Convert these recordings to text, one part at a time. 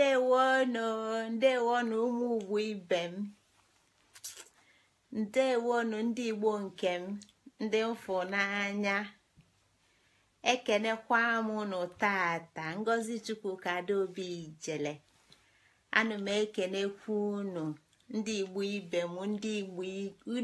ndewonu ndewonu ụmụ ugwu ibe m ndewonu ndị igbo nke m ndị mfụ n'anya ekenekwa m nụ tata ngozi chukwu kadaobi ijele ana m ekenekwu unu ndị igbo ibe m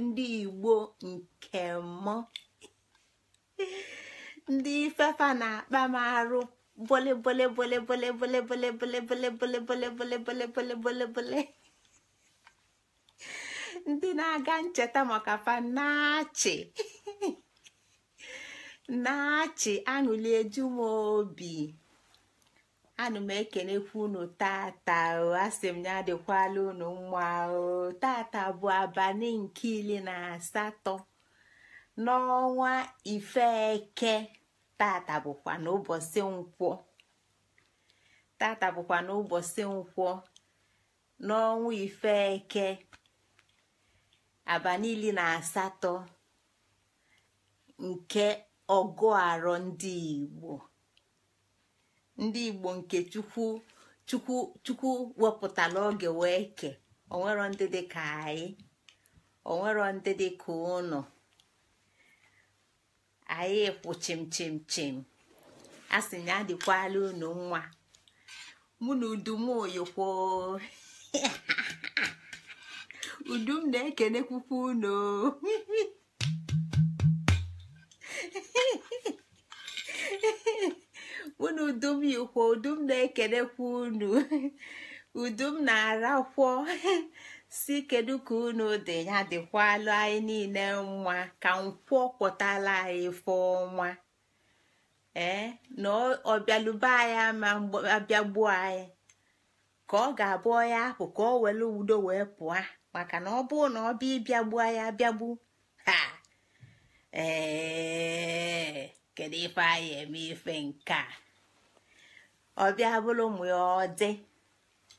ndị igbo nke m ndị ifefa na-akpa m arụ Bole, bole, bole, bole, bole, bole, bole, bole, bole, bole, bole, bole, bole, bole, bole. Ndị na-aga ncheta maka fa na-achị aṅụli eju m obi anụ m ekenekwa unu tata asị m ya adịkwala unu mma tata bụ abalị nke iri na asatọ n'ọnwa ifeke tata bụkwa n'ụbọchị nkwọ tata bụkwa n'ụbọchị nkwọ n'ọnwa ife eke abanili na asatọ nke ọgụ arọ ndị igbo ndị igbo nke chukwu chukwu chukwu wepụtara oge wee ke onwero ndị dị ka anyị onwero ndị dị ka ụnọ. anyị kwụ chim chim chim a sị na adịkwala unu nwa mụ na udumoyikwo udum na-ekelekwukwa unu mụ na udum yikwo udum na-ekelekwa unu udum na-arakwọ si kedu ka unu dị ya dịkwala anyị niile nwa ka nkwọ kwọtala anyị efe ọnwa ee na anyị ama abịagbuo anyị ka ọ ga-abụ ya apụ ka ọ were udo wee pụọ maka na ọ bụrụ na ọ bịa ịbịagbu anyị abịagbu ha ee kedu ife anyị eme ife nke a ọ bịa bụrụ mụ ya ọ dị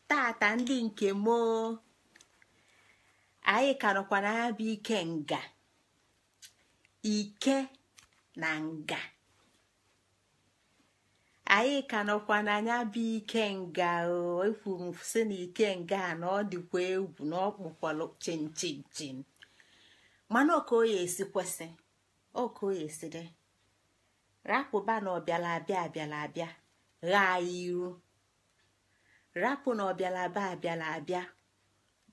tata ndị nke moo anyị ka na ya bụ ike nga ike na nga anyị ka nọkwa n'anya bụ ike nga ekwuru m sị na ike nga na ọ dịkwa egwu na ọ kpọkwalụ chinchin mana oke oya esi kwesị oke ọka esi dị rapụba na ọbịala abịa abịala abịa ghaa ya iru rapụ na ọbịala abịa abịala abịa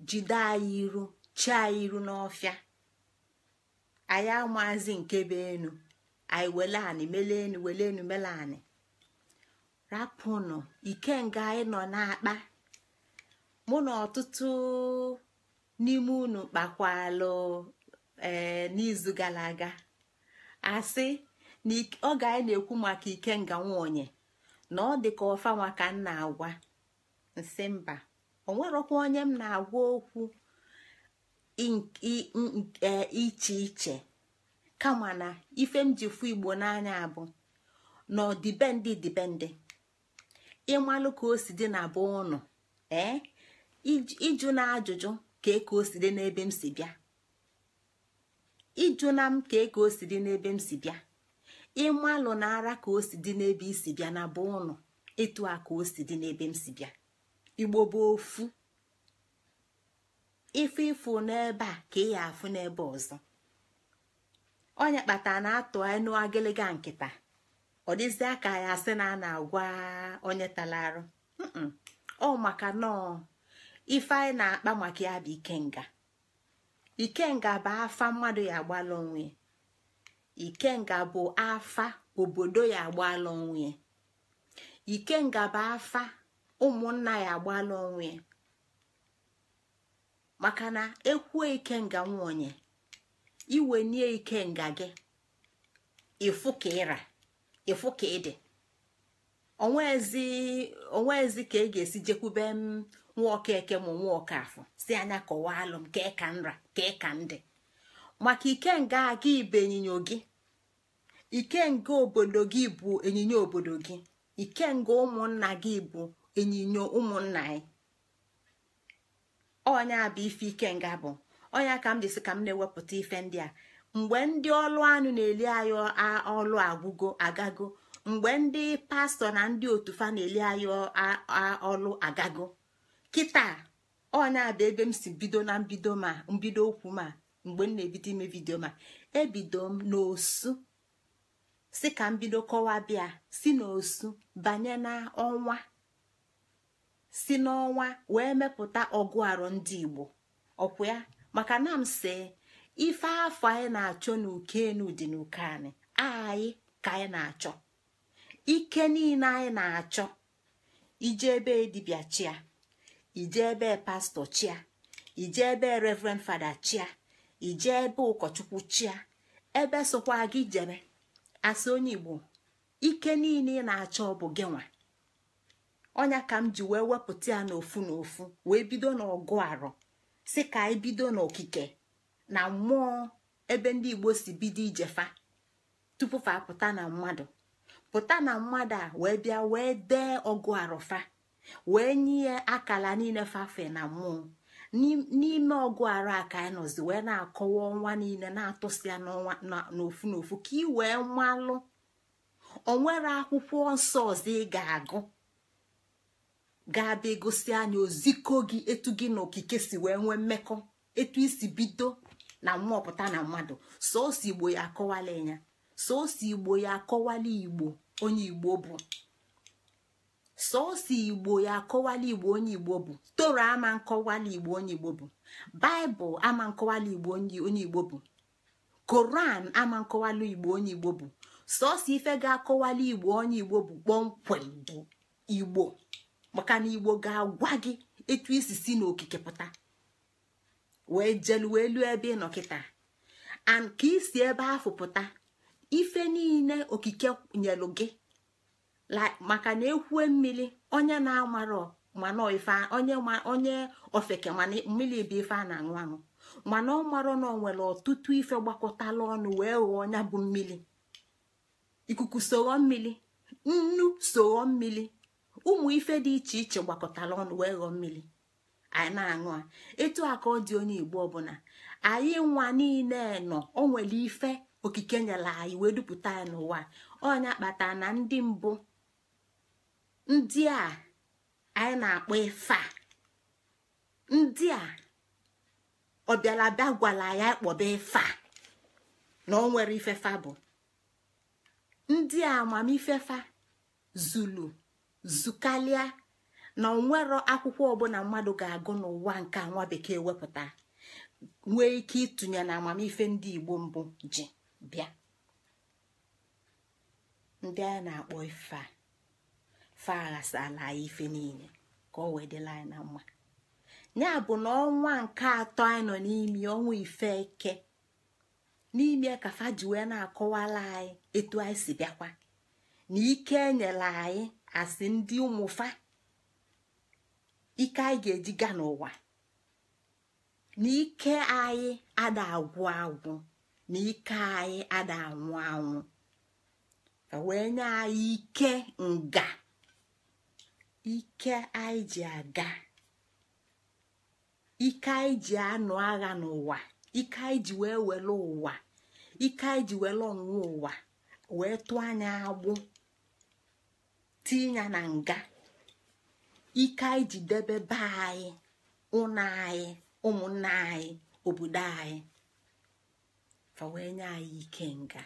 jide anyị iru chaa iru n'ọfịa anyị amazi nke be enu anyị wele anị mele enu wele enu mele anị rapụnụ ikenga anyị nọ na-akpa mụ na ọtụtụ n'ime unu kpakwalụ ee eh, n'izu gara aga asị na oge anyị na-ekwu maka ikenga nwonye na ọ dị ka ọfa m nna agwa nsị mba onwerọkwa onye m na-agwa okwu E, iche iche kama na ife m ji fụ igbo n'anya bụ na ọdịbendị dịbendị ịmalụ ka o si dị na bụ ụnụ ee ịjụ na ajụjụ ka eka osi o si dị n'ebe m si bịa ịjụ na m ka eka o si dị n'ebe m si bịa ịmalụ na ara ka o si dị n'ebe isi bịa na bụ ụnụ ịtụ a ka o si dị n'ebe m si bịa igbo bụ ofu ife ịfụ n'ebe a ka ị ya afụ n'ebe ọzọ onye kpatara na atụ enu agịlịga nkịta ọ dịzie ka ya asị na a na-agwa onye arụ ọ maka nọọ ife anyị na-akpa maka ya bụ ikenga ikenga bụ afa mmadụ ya agbala onwe ikenga bụ afa obodo ya agbala onwe ikenga bụ afa ụmụnna ya agbala onwe maka na ekwuo ikenga nwaonye iwe nie nga gị ịfụ ka ịra ịfụ ka ịdị onweezi ka ị e ga-esi jekwube m nwa ọka eke ma nwa ọka afọ si anya kọwaa alụ m ka ị ka nra ka ị ka ndị maka nga aga ibe ịnyịnya gị ike nga obodo gị bụ ịnyịnya obodo gị nga ụmụnna gị bụ ịnyịnya ụmụnna anyị ọnya bụ ife ike nga bụ ọnya ka m jisi ka m na-ewepụta ife ndị a mgbe ndị ọlụ anụ na-eli anyị ọlụ agwụgo agago mgbe ndị pastọ na ndị otufa na-eli anyị ọlụ agago kịta ọnya bụ ebe m si bido na mbido ma mbido okwu ma mgbe m na-ebido ime vidio ma ebido m n'osu si ka m bido kọwa bịa si n'osu banye na ọnwa si n'ọnwa wee mepụta ọgụ arụ ndị igbo ọkwa ya maka na m ife afọ anyị na-achọ n'uke enu dị n'uke anyị anyị ka anyị na-achọ ike niile anyị na-achọ ije ebe dibịa chia ije ebe pastọ chia ije ebe reverend fada chia ije ebe ụkọchukwu chia ebe sokwa gị jere. asị onye igbo ike niile ị na-achọ bụ gị nwa ọnya ka m ji wee wepụta ya n'ofu n'ofu wee bido n'ọgụ arọ si ka anyị bido n'okike na mmụọ ebe ndị igbo si bido ijefa tupu fa pụta na mmadụ pụta na mmadụ a wee bịa wee dee ọgụ arọ fa wee nye akala niile fafe na mmụọ n'ime ọgụ arọ a ka anyị nọzi wee na-akọwa ọnwa niile na-atụsi ya n'ofu n'ofu ka ị wee malụ onwere akwụkwọ nsọ ọzọ ị ga-agụ ga-abịa egosi anyị oziko gị etu gị na okike si wee nwee mmekọ etu isi bido na mmụọpụta na mmadụ sọọsọ igbo ya akọwala ịnya. sọọsọ igbo ya akọwala igbo onye igbo bụ sọọsọ igbo ya akọwala igbo onye igbo bụ toro ama nkọwala igbo onye igbo bụ baịbụl ama nkọwala igbo onye igbo bụ koran ama nkọwala igbo onye igbo bụ sọọsọ ife ga-akọwala igbo onye igbo bụ kpọmkwem igbo maka na igbo ga-agwa gị etu isi si n'okike pụta wee jelu wee lụọ ebe ị kịta and ka isi ebe ahụ pụta ife niile okike nyelu gị maka na ekwue mmiri onye na-amarọ mana onye ofeke mana mmiri bụ ife a na-aṅụ aṅụ mana ọ marọ na onwere nwere ọtụtụ ife gbakọtala ọnụ wee ghọọ ọnya bụ mmiri ikuku soghọ mmiri nnu soghọ mmiri ụmụ ife dị iche iche gbakọtara ọnụ wee ghọọ mmiri anyị na-aṅụ a etu a ka ọ dị onye igbo ọbụla anyị nwa niile nọ o nwere ife okike nyere anyị wee dupụta ya n'ụwa ọnya kpata na ndị mbụ ndị a anyị na-akpọ ife a ndị a ọbịalabịa gwara ya kpọba ife na ọ nwere ifefa bụ ndị a amamifefa zulu zukalịa na onwero akwụkwọ ọbụla mmadụ ga-agụ n'ụwa nke nwa bekee wepụta nwee ike ịtụnye na amamife ndị igbo mbụ ji bịa ndị a na-akpọ ife fa aghasala anyị ife niile ka ọ wee dịla anyị na mma ya bụ na ọnwa nke atọ anyị nọ n'ime ọnwa ife eke n'ime ka fa ji wee na-akọwala anyị etu anyị si bịakwa na ike enyela anyị asị ndị ụmụfa ike anyị ga-eji gaa n'ụwa na ike anyị ada agwụ agwụ na ike anyị ada anwụ anwụ ka wee nye anyị ike nga ike anyị ji aga ike anyị ji anụ agha n'ụwa ike anyị ji wee were ụwa ike anyị ji were ọnwụ ụwa wee tụọ anya agbụ tinye na nga ike anyị ji debe be anyị ụnọ anyị ụmụnna anyị obodo anyị fa nye anyị ike nga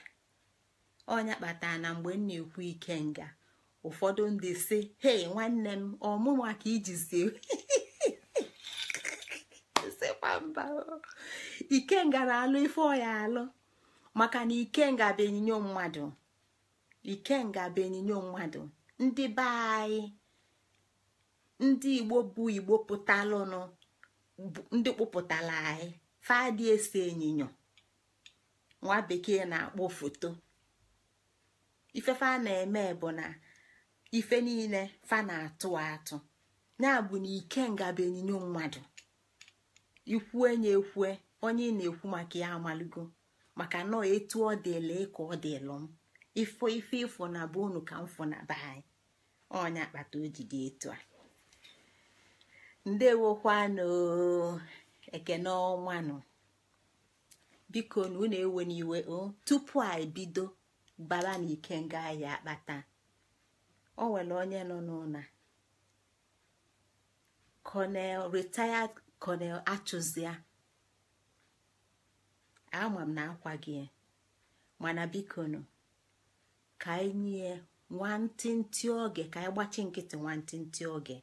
ọnya kpatara na mgbe m na-ekwu ike nga ụfọdụ ndị si hei nwanne m ọmụma ka ijizi ikenga na-alụ ife ọya alụ maka na ikenga bụ enyinyo ikenga bụ enyinyo mmadụ ndị be anyị ndị igbo bụ igbo pụtalụnụ ndị kpụpụtara anyị fadị ese enyinyo nwa bekee na-akpọ foto ifefe a na-eme bụ na ife niile fa na-atụ atụ na bụ na ike ngaba enyinyo mmadụ ikwue nye ekwue onye ị na-ekwu maka ya amaligo maka nọọ etu ọ dịla ka ọ dịlụ m ifo ife ifo na abụ unu ka mfọ na be anyị ọnya akpata o ji dị etu a ndewokwanụ ekene ọnwanụ biko na unu ewe n'iwe o tupu a ebido bara na ikenga ahịa akpata o nwere onye nọ n'ụna Colonel retired Colonel Achụzia ama m na akwa gị mana biko ka anyị nye nwantịntị oge ka anyị gbachi nkịtị nwantịntị oge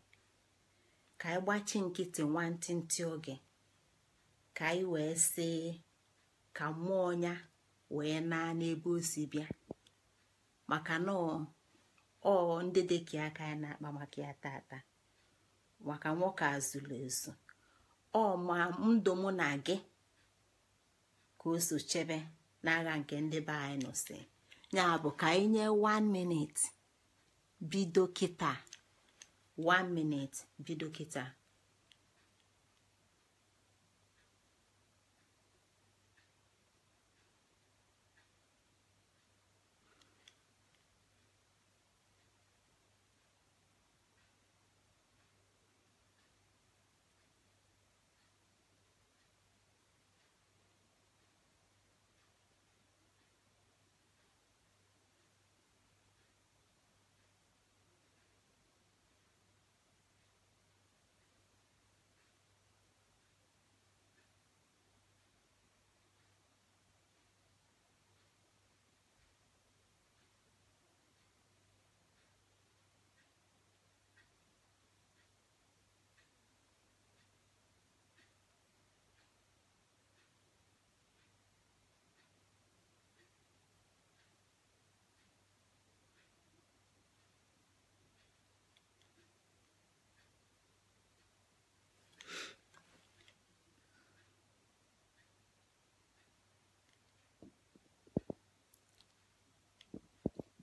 ka anyị gbachi nkịtị nwantịntị oge ka anyị wee si ka mmụọ ya wee naa n'ebe o si bịa maka na ọ ndị dịka aka ya na-akpa maka ya tata maka nwoke azụlụ ezu ọ ma ndụ mụ na gị ka o so chebe n'agha nke ndị be anyị nụsị ya bụ ka anyị nye 1 minute bido kịta 1 minute bido kịta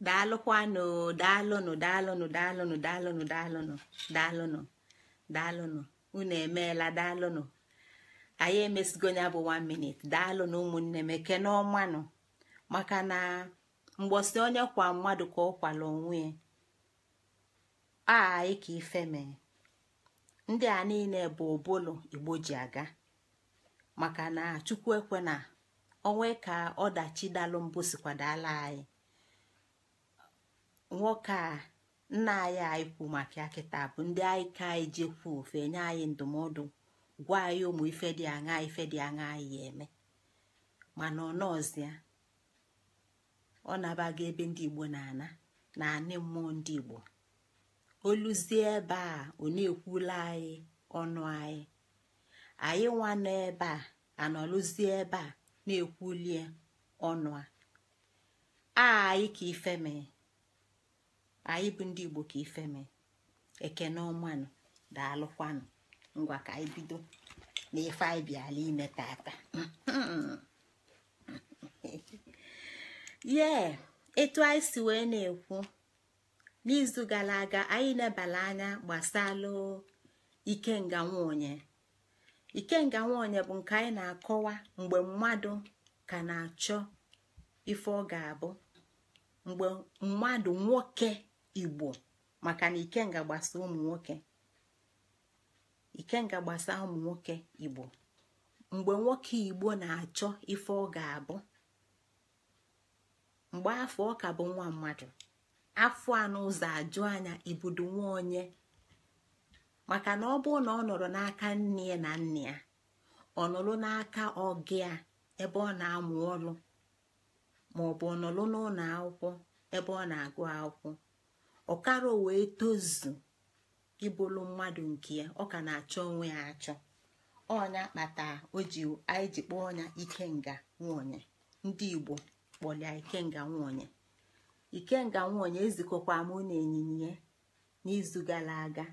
daalụkwanụ daalụnụ daalụnụ daalụnụ daalụnụ daalụnụ daalụnụ daalụnụ unu emeela daalụnụ anyị emesigo ya bụ 1 minute daalụnụ ụmụnne m ekene ọmanụ maka na mgbọsị onye kwa mmadụ ka ọ kwala onwe a anyị ka ife mee ndị a niile bụ obolo igbo ji aga maka na chukwu ekwe na onwe ka ọdachi dalụ mbụ sikwadala anyị nwoke a nna anyị anyị kwu maka ya kịta bụ ndị anyị ka anyị jekwu ofe nye anyị ndụmọdụ gwa anyị ụmụ ife dị aṅa ife dị aṅa anyị eme mana ọ nọọzịa ọ ebe ndị igbo na-ana na anị mmụọ ndị igbo oluzie ebe a ọ na-ekwula anyị ọnụ anyị anyị nwa nọ ebe a anọlụzie ebe a na-ekwulie ọnụ a anyị ka ife mee anyị bụ ndị igbo ka ifeme ekene ọmanụ daalụkwanụ ngwa ka anyị bido na ife anyị bịala ime tata ye etu anyị si wee na-ekwu n'izu gara aga anyị nebala anya gbasalụ ikenga nwaonye ikenga nwaonye bụ nke anyị na-akọwa mgbe mmadụ ka na-achọ ife ọ ga-abụ mgbe mmadụ nwoke igbo maka na ikenga gbasa ụmụ nwoke ikenga ụmụ nwoke igbo mgbe nwoke igbo na-achọ ife ọ ga-abụ mgbe afọ ọka bụ nwa mmadụ afọ anụ ụzọ ajụ anya ibudo nwa onye maka na ọ bụrụ na ọ nọrọ n'aka nne na nna ya ọ nọrọ n'aka ọgị a ebe ọ na-amụ ọrụ maọbụ ọ nọrọ n'ụlọ akwụkwọ ebe ọ na-agụ akwụkwọ ọkara wee tozu ịbụlụ mmadụ nke ya ọ ka na-achọ onwe ya achọ ọnya kpata oji anyị ji kpọọ ọnya ikenga nwonye ndị igbo kpọlịa ikenga ike ikenga nwonye ezikọkwa mụ na ịnyịnya n'izu gara aga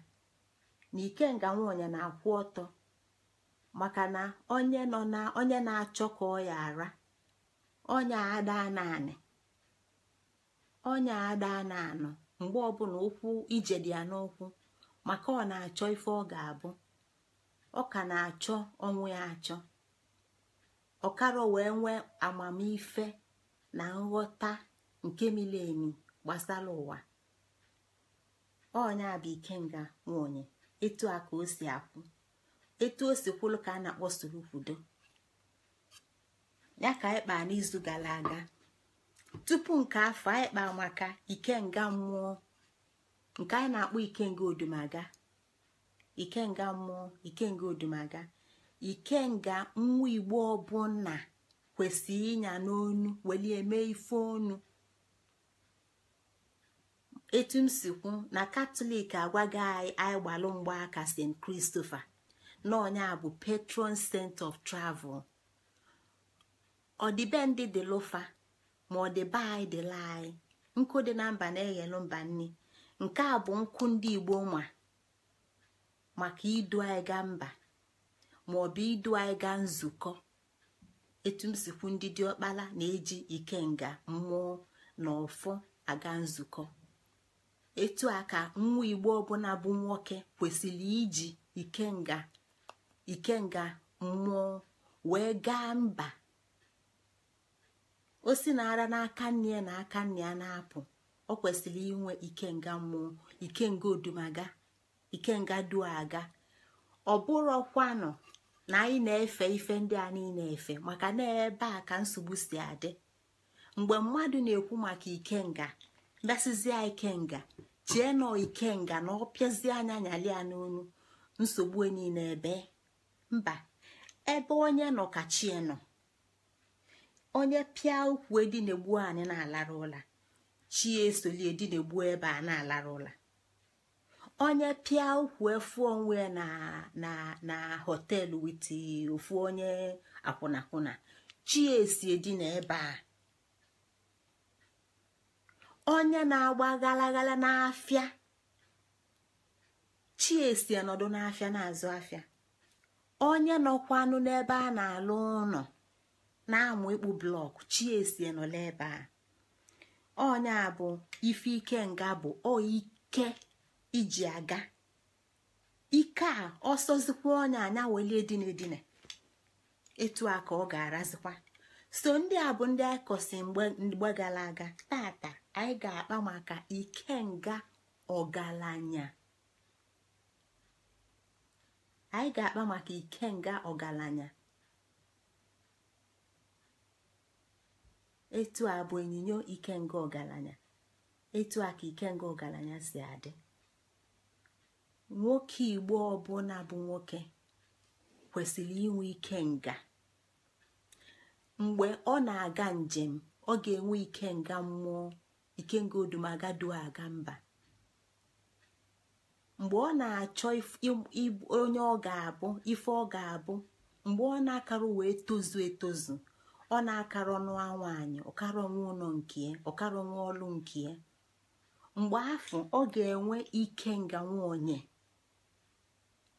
na ikenga nwonye na-akwụ ọtọ maka na onye nọ na onye na-achọ ka ọ ya ara ọnya ada naanị ọnya ada anọ mgbe ọbụla ụkwụ ije dị ya n'ụkwụ maka ọ na-achọ ife ọ ga-abụ ọ ka na-achọ ọnwụ ya achọ ọkara wee nwee amamife na nghọta nke mileemi gbasara ụwa ọnya bụ ikenga nwunye etu a ka o si akwụ etu o si kwụlụ ka a na-akpọ soro kwudo ya ka anyị kpaa n'izu gara aga tupu nke afọ anyị kpa maka ikenga mmụọ nke anyị na-akpọ ikenga odumaga ikenga mmụọ ikenga odumaga ikenga nwa igbo ọbụna kwesịrị ịnya n'onu welie eme ife onu etu m si kwu na katọlik agwaghị anyị anyị gbalụ mgbaaka st kristofa na onye a bụ patron saint of travel ndị dị lofa ma ọ dị be anyị dịla anyị nkụ dị na mba na-eghelu mba nni nke a bụ nkwụ ndị igbo nwa maka idu anyị gaa mba maọbụ idu anyị gaa nzukọ etu m sikwu ndị dị ọkpala na-eji ikenga mmụọ na ọfọ aga nzukọ etu a ka nwa igbo ọbụla bụ nwoke kwesịrị iji ikenga ikenga mmụọ wee gaa mba osi na ara n'aka nne ya na aka nne ya na-apụ ọ kwesịrị inwe ikenga mmụọ ikenga odumaga ikenga aga ọ bụrọkwanụ na anyị na-efe ife ndị a niile efe maka na ebe a ka nsogbu si adị mgbe mmadụ na-ekwu maka ikenga ike ikenga chie nọ ikenga na ọ pịazie anya nyalia n'onu nsogbu e niile ebe mba ebe onye nọ ka chie nọ onye pịa ụkwụ edi na-egbu anyị na-alara ụla chi esoli edi na-egbu ebe a na-alara ụla onye pịa ụkwụ efu onwe na na na họteelụ wit ofu onye akwụnakwụna chi esi edi na ebe a onye na-agba galagala n'afịa chi esi n'afịa na-azụ afịa onye nọkwanụ n'ebe a na-alụ ụnọ. na-amụ ịkpụ blọk chiesie nọla ebe a onye a bụ ife ike nga bụ o ike iji aga ike a ọsọzikwa onye anya welie dina edina etu a ka ọ ga-arazikwa so ndị a bụ ndị akọsi kọsi mgbe gara aga tata anyị ga-akpa maka ike nga ọgaranya anyị ga-akpa maka ike nga ọgaranya etu a bụ onyinyo ikenga ọgaranya etu a ka ikenga ọgaranya si adị nwoke igbo ọbụla bụ nwoke kwesịrị inwe nga. mgbe ọ na-aga njem ọ ga-enwe ikenga mmụọ ikenga odumagadụ aga mba mgbe ọ na-achọ onye ọ ga-abụ ife ọ ga-abụ mgbe ọ na-akarụ wee tozu etozu ọ na-akarọ akara n'anwa anyị ọkarọ nwa ụlọ nke ọkarọ nwa ọlụ nke mgbe afọ ọ ga-enwe ike nga nwa onye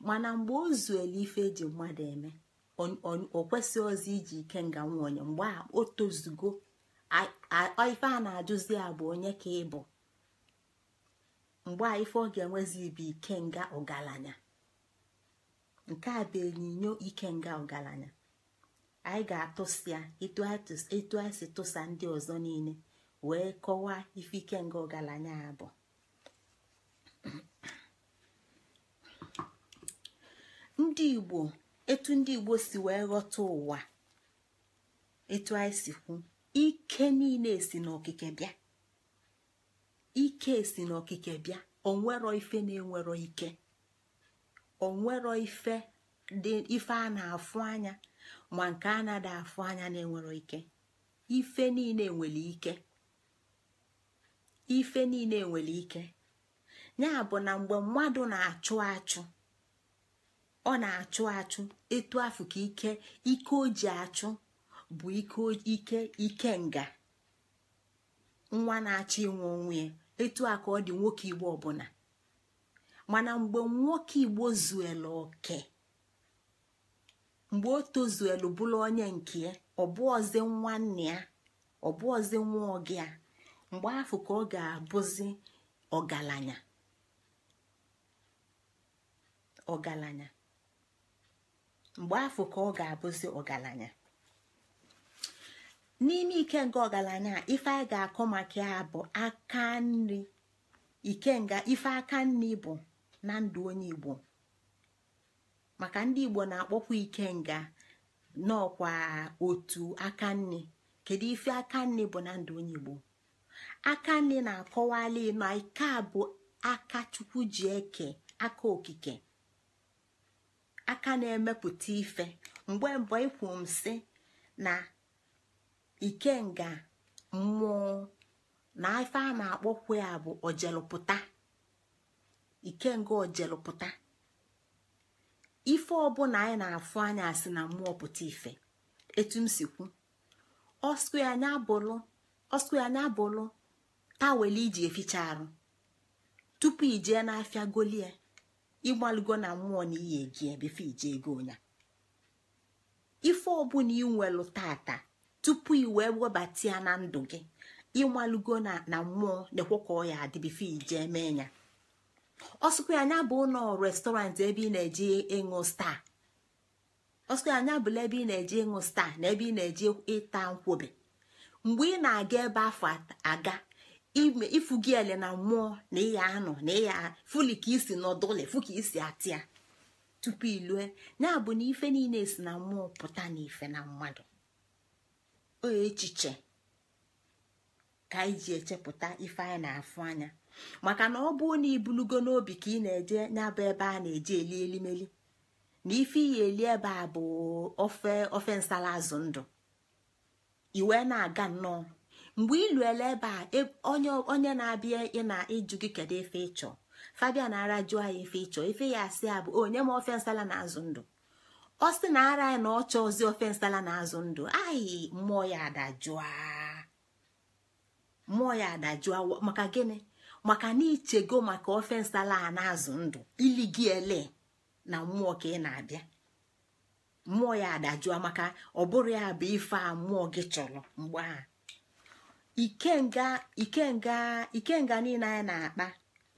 mana mgbe o zuela ife eji mmadụ eme o kwesị ozi iji ike nga nwa onye mgbe a o tozugo ife a na-ajụzi a bụ onye ka ị bụ mgbe a ife ọ ga-enwezi ike nga ọgaranya nke a bụ enyinyo nga ọgaranya anyị ga-atụsịa etu anyị si tụsa ndị ọzọ niile wee kọwaa ife ike nga ọgaranya bụ ndị igbo etu ndị igbo si wee ghọta ụwa etu anyị si kwu ike niile si n'okike bịa ike si n'okike bịa onwero ife na-enwero ike onwero ife dị ife a na-afụ anya ma nke a na-ada anya na-enwero ike ife niile nwere ike ife niile nwere ike ya bụ na mgbe mmadụ na-achụ achụ ọ na-achụ achụ etu afụ ka ike ike o ji achụ bụ ike ike nga nwa na-achọ ịnwụ onwe ya etu a ọ dị nwoke igbo ọbụla mana mgbe nwoke igbo zuela oke mgbe o tozuelu bụrụ onye nke ya ọbụọzi nwanne ya ọbụọzi nwa oge ya mgbe afọ ka ọ ga-abụzi ọgaranya ọgaranya mgbe afọ ka ọ ga-abụzi ọgaranya n'ime ike nke ọgaranya ife anyị ga-akọ maka ya bụ aka nri nga ife aka nri bụ na ndụ onye Igbo maka ndị igbo na-akpọkwa ikenga n'ọkwa otu aka nne, kedu ife aka nne bụ na ndụ onye igbo aka nne na-akọwali na ike a bụ aka chukwu ji eke aka okike aka na-emepụta ife mgbe mbọ ikwu m sị na ikenga mmụọ na ife a na-akpọkwa ya bụ ojelụpụta ikenga ojelụpụta ife ọbụla anyị na-afụ anya asị na mmụọ pụta ife etu m si kwu ọsku anya abụlụ tawel iji eficha arụ tupu ijee n'afịa golie ịgbalụgo na mmụọ na iyi egie bife ije ego onya ife ọbụla inwelu tata tupu wee webata ya na ndụ gị ịmalụgo na mmụọ na-ekwe ka ọ ya adị bife ijee mee ya ọsụkwa anya bụ ụlọ restọrantị ebe ị na-eji ịṅụ staa ọsụkwa anya bụla ebe ị na-eji ịṅụ staa na ebe ị na-eji ịta nkwobe mgbe ị na-aga ebe afọ aga ifugi ele na mmụọ na ịya anọ na ịya fuli ka isi nọdụle fu ka isi atịa tupu ilue ya bụ na ife niile si na mmụọ pụta na ife na mmadụ o echiche ka anyị ji echepụta ife anyị na-afụ anya maka na ọ bụ na ibulugo n'obi ka ị na-eje nyabụ ebe a na-eje eli elimeli na ife iyi eli ebe a bụ ofe ofe nsala azụ ndụ iwe na-aga nnọọ mgbe iluele ebe a e, onye na-abịa ị na ịjụ gị kedu ife ịchọ fabia na ara jụọ ya ife ịchọ ife ya asị ya bụ onye ma ofe nsala na azụ ndụ ọ sị na ara ya na ọ ozi ofe nsala na azụ ndụ ayị mmụọ ya adajụa mmụọ ya adajụa maka gịnị maka na ichego maka ofe nsala a na-azụ ndụ ili gị ele na mmụọ ka ị na-abịa mmụọ ya adajụa maka ọ bụrụ ya bụ ife a mmụọ gị chọrọ mgbe a ikenga niile anyị na-akpa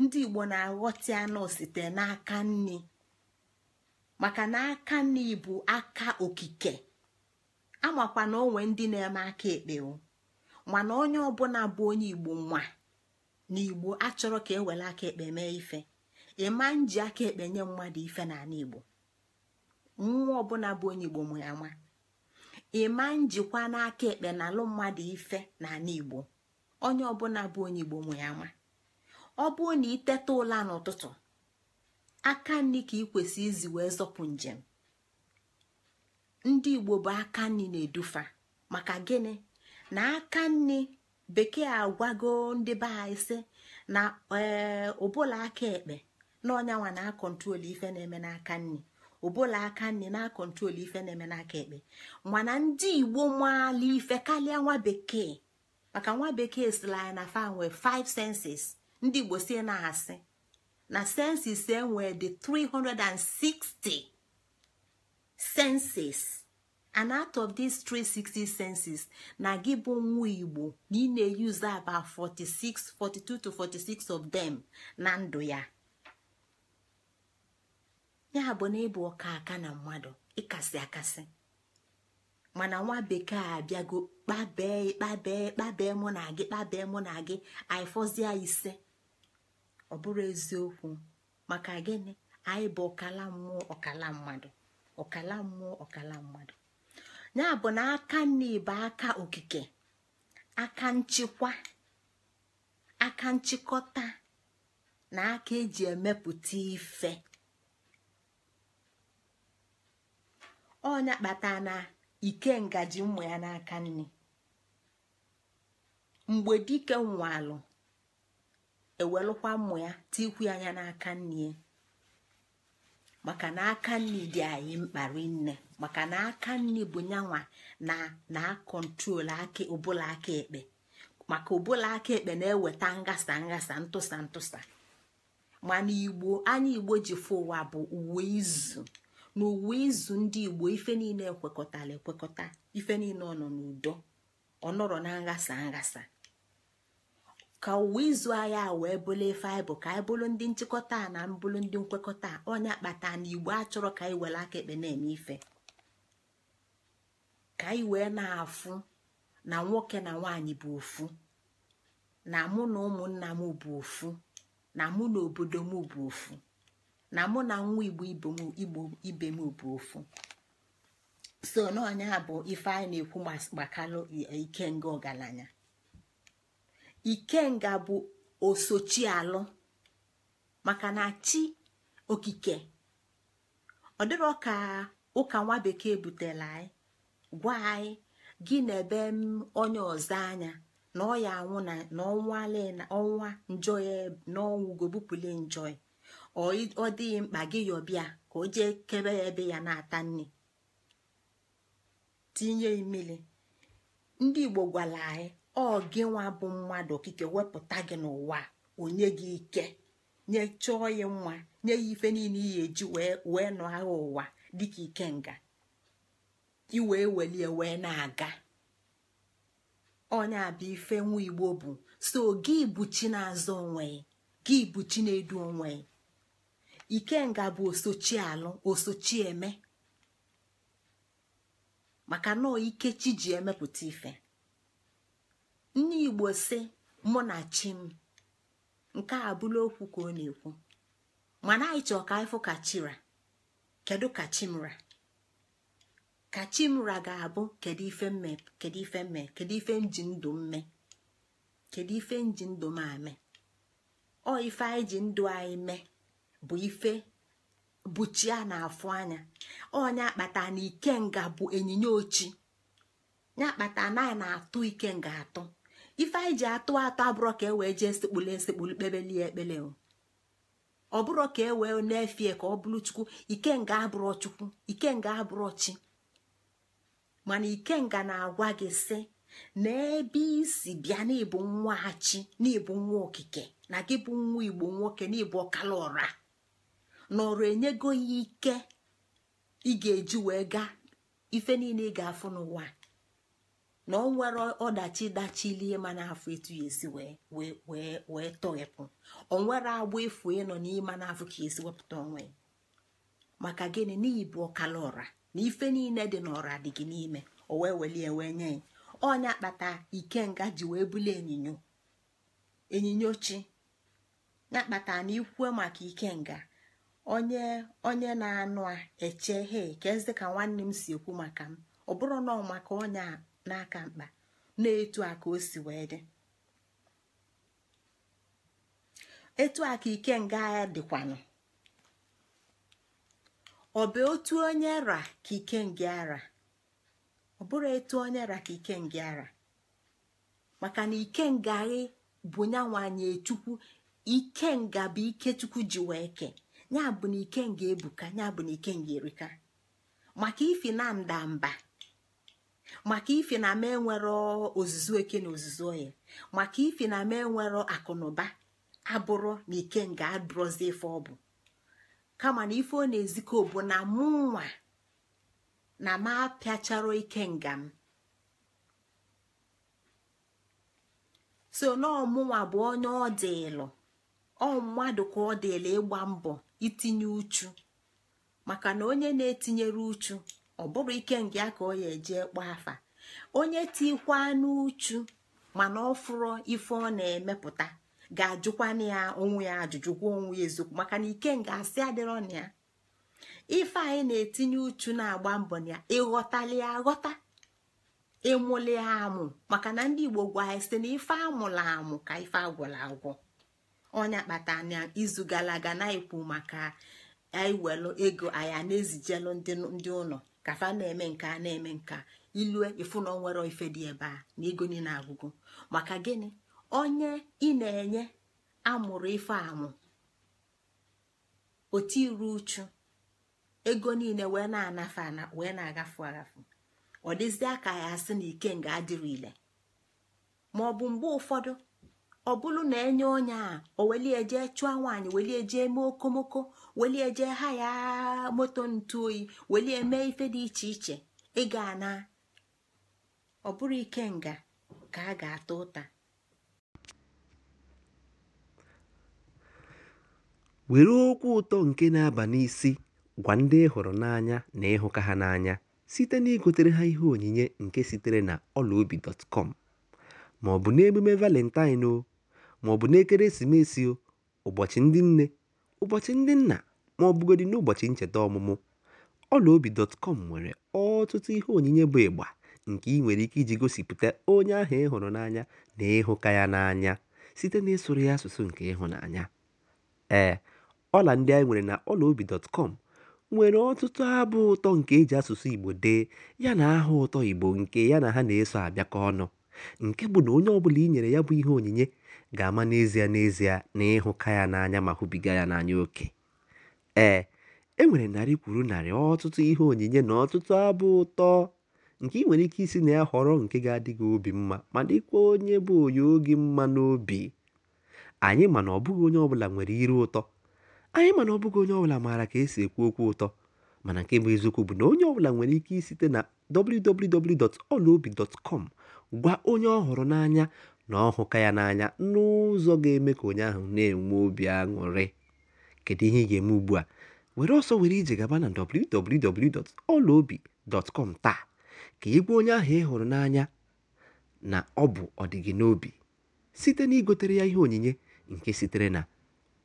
ndị igbo na-aghọtị anụ site n'aka nni maka na aka nni bụ aka okike amakwa na onwe ndị na-eme aka ekpewo mana onye ọbụla bụ onye igbo nwa N'igbo achọrọ ka ewere aka ekpe mee ife ịma nji aka ekpe nye mmadụ ife n'ala igbo nwa ọbụla bụ onye igbo mụ ya nwa ịma njikwa n'aka ekpe na alụ mmadụ ife n'ala igbo onye ọbụla bụ onye igbo mụ ya nwa ọ bụrụ na iteta ụla n'ụtụtụ aka nri ka ị kwesị izi wee zọpụ njem ndị igbo bụ aka nri na-edufa maka gịnị na aka nri bekee agwago ndị be anyị na ee ụbụla aka ekpe na ọnyanwa na akọntrol ife na-eme n'aka nri ụbụla aka nne na akọntrol ife na-eme n'aka ekpe mana ndị igbo maala ife karịa nwa bekee maka nwa bekee sila na fa nwee 5 senses ndị igbo si na-asị na senses enwee dị 360 senses and out of these 360 senses na gị bụ nwa igbo na ị na-eyuzu about 46 42 46 of them na ndụ ya ya bụ na ịbụ ọka aka na mmadụ ịkasị akasị mana nwa bekee abịago kpabee kpabee kpabee mụ na gị kpabee mụ na gị fọzie ise ọ bụrụ eziokwu maka gịnị anyị bụ ọkala mmụọ ọkala mmadụ ọkala mmụọ ọkala mmadụ ya bụ na aka nne bụ aka okike aka nchịkwa aka nchịkọta na aka eji emepụta ife ọnya kpata na ike ngaji ụmụ ya n'aka nne mgbe dike nwalụ ewelụkwa mmụ ya tikwu anya n'aka nne maka na aka nni dị anyị mkpa rinne maka na aka nni bụ nyanwa na na kọntrol aka ụbụla aka ekpe maka ụbụla aka ekpe na-eweta ngasa ngasa ntụsa ntụsa mana igbo anya igbo ji fụ ụwa bụ uwe izu na uwe izu ndị igbo ife niile ekwekọtara ekwekọta ife niile ọ nọ n'udo ọ nọrọ na nghasa ngasa. ka ụwa izu agha wee bụlụ ife anyị bụ ka anyị bụrụ ndị nchịkọta na mbụrụ ndị nkwekọta onye akpata na igbo achọrọ ka anyị were aka ekpe na-eme ife ka anyị wee na-afụ na nwoke na nwaanyị bụ ofu na mụ na ụmụnna m bụ ofu na mụ na obodo m bụ ofu na mụ na nwa igbo igbo ibe m bụ ofu so n'ọnya bụ ife anyị na-ekwu ike ikenga ọgaranya ikenga bụ osochialụ maka na chi okike ọ dịrọ ka ụka nwa bekee butela anyị gwa anyị gị na ebe onye ọzọ anya na ọ anwụ na ọnwa njọ ya n'ọnwụgo bupụle njọ ya ọ dịghị mkpa gị yọbịa ka o jee kebe ya ebe ya na-ata nne, tinye imili ndị igbo gwara anyị ọ gị nwa bụ mmadụ okike wepụta gị n'ụwa onye gị ike nye chọọ ya mma nye ya ife niile iyi eji wee nọ agha ụwa dịka ikenga iwee welie wee na-aga onye abịa ife nwa igbo bụ so gị buchi na-azọ onwe gị buchi na-edu onwe ikenga bụ osochi alụ osochi eme maka nọọ ike chi ji emepụta ife Nne igbo si mụ na chi m nke a abụla okwu ka ọ na-ekwu mana anyị chọọ ka ịfụ ka chira kedu ka chimra ka chimra ga-abụ kedu ife mme kedu ife mme kedu ife nji ndụ mme kedu ife nji ndụ m ame ọ ife anyị ji ndụ anyị mee bụ ife bụchi a na-afụ anya ọnya akpata na ikenga bụ onyinye ochi ya akpata na anyị na-atụ ikenga atụ. ife anyị ji atụ atọ abụrọ ka e wee jee sekpulu esekpulu kpebelie ekpele ọ bụrọ ka e wee na-efie ka ọ bụrụ chukwu ikenga abụrọ chukwu ikenga abụrọ chi mana ikenga na-agwa gị sị na ebe isi bịa n'ịbụ nwa chi n'ịbụ nwa okike na gị bụ nwa igbo nwoke n'ịbụ ọkala ọra n'ọrụ enyego ya ike ị ga-eji wee gaa ife niile ị ga-afụ n'ụwa na ọ nwere ọdachi dachilie na afọ etu ya esi wee tọghepụ ọ nwere agba efu ịnọ n'ime n'afọ ka esi wepụta onwe ya maka gịnị n'ihi bụ ọkala ọra na ife niile dị n'ọra dị gị n'ime o wee welie wee nye ya onye akpata ikenga ji wee bulie enyinyo enyinyo chi ya kpata na ikwue maka ikenga onye onye na-anụ a eche he ka eze ka nwanne m si ekwu maka m ọ bụrụ na ọ maka onye a n'aka mkpa na-etu a ka o si wee dị etu a ka ike nga agha dịkwanụ ọ bụ otu onye ra ka ike ara ọ bụrụ etu onye ra ka ike nga ara maka na ike nga bụ nyanwanye chukwu ike nga bụ ike chukwu ji wee ke ya bụ na ike nga ebuka ya bụ na ike nga erika maka ifi na mba. maka ife na m enwero ozuzu eke na ozuzu oyi maka ife na m enwero akụnụba abụrụ na nga adụrọzi ife ọ bụ kama na ife ọ na-ezikọ bụ na mụ nwa na m apịacharo ikenga m so n'ọmụnwa bụ onye ọ dịlụ ọ mmadụ ka ọ ịgba mbọ itinye uchu maka na onye na-etinyere uchu ọ bụrụ ike nke ya ka ọ ya eje kpọọ afa onye tikwa n'uchu mana ọ fụrụ ife ọ na-emepụta ga-ajụkwana ya onwe ya ajụjụ ajụjụkwa onwe ya eziokwu maka na ike nga asị adịrọ na ya ife anyị na-etinye uchu na-agba mbọ na ya ịghọtali ya aghọta ịmụli amụ maka na ndị Igbo gwa anyị site na ife amụla amụ ka ife agwụla agwụ ọnya kpata na izu gara aga na ekwu maka anyị welu ego anyị na-ezijelu ndị ụlọ kafa na-eme nke a na-eme nke ilue ifu na onwere ife dị ebe a na ego niile agwụgo maka gịnị onye ị na-enye amụrụ ife amụ otu iru uchu ego niile wee na-anafe wee na-agafu agafu ọ dịzie aka ya asị na ike nga adịrị ile ma ọ bụ mgbe ụfọdụ ọ bụrụ na enye onye a o welie jee chụọ nwaanyị welie jee mee okomoko welie jee ha ya moto ntu oyi welie mee ife dị iche iche ị na ọ bụrụ ike nga ka a ga-ata ụta were okwu ụtọ nke na-aba n'isi gwa ndị ị hụrụ n'anya na ịhụka ha n'anya site na igotere ha ihe onyinye nke sitere na ọlaobi.com ma ọ bụ n'emume valentine o maọbụ ọ bụ n'ekeresimesi o ụbọchị ndị nne Ụbọchị Ndị Nna, ma ọ bụgodị n'ụbọchị ncheta ọmụmụ, ọlaobi.com nwere ọtụtụ ihe onyinye bụ ịgba nke ị nwere ike iji gosipụta onye ahụ ị hụrụ n'anya na ịhụka ya n'anya site n'ịsụrụ ya asụsụ nke ịhụnanya. Ee, ọla ndị anyị nwere na ọlaobi.com nwere ọtụtụ abụ ụtọ nke e ji asụsụ Igbo dee yana aha ụtọ Igbo nke ya na ha na-eso abịakọ ọnụ, nke bụ na onye ọbụla i nyere ya bụ ihe onyinye ga-ama n'ezie n'ezie na ịhụka ya n'anya ma hụbiga ya n'anya oke ee e nwere narị kwuru narị ọtụtụ ihe onyinye na ọtụtụ abụ ụtọ nke ị nwere ike isi na ya họrọ nke ga-adịghị obi mma ma dịkwa onye bụ onye oge mma n'obi anyị mana ọbụghị onye ọbụla nwere iru ụtọ anyị mana ọbụghị onye ọbụla maara ka esi ekwu okwu ụtọ mana nke bụ eziokwu bụ na onye ọbụla nwere ike isite na www.olaobi.com gwa onye ọ họrọ n'anya na ọ hụka ya n'anya n'ụzọ ga-eme ka onye ahụ na-enwe obi aṅụrị kedu ihe ị ga-eme ugbu a were ọsọ were ije gaba na dọtkọm taa ka ị onye ahụ ị hụrụ n'anya na ọ bụ ọdịgị n'obi site na igotere ya ihe onyinye nke sitere na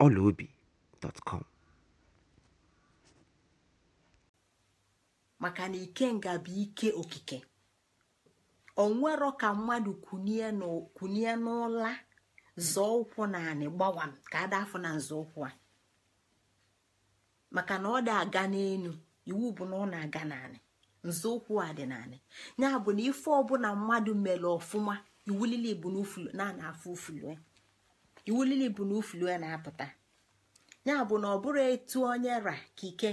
ọlaobi.com maka na ikenga bụ ike okike onwero ka mmadụ kunie n'ụla zọọ ụkwụ naanị gbawa ka ada afọ na nzọụkwụ a maka na ọ dị aga n'enu iwu bụ na ọ na-aga naanị nzọụkwụ a dị naanị ya bụ na ife ọbụla mmadụ mere ọfụma iwulili bụ na na-afụ ufulue iwulili bụ na ufulue na-apụta ya bụ na ọ bụrụ etu onye ra ka ike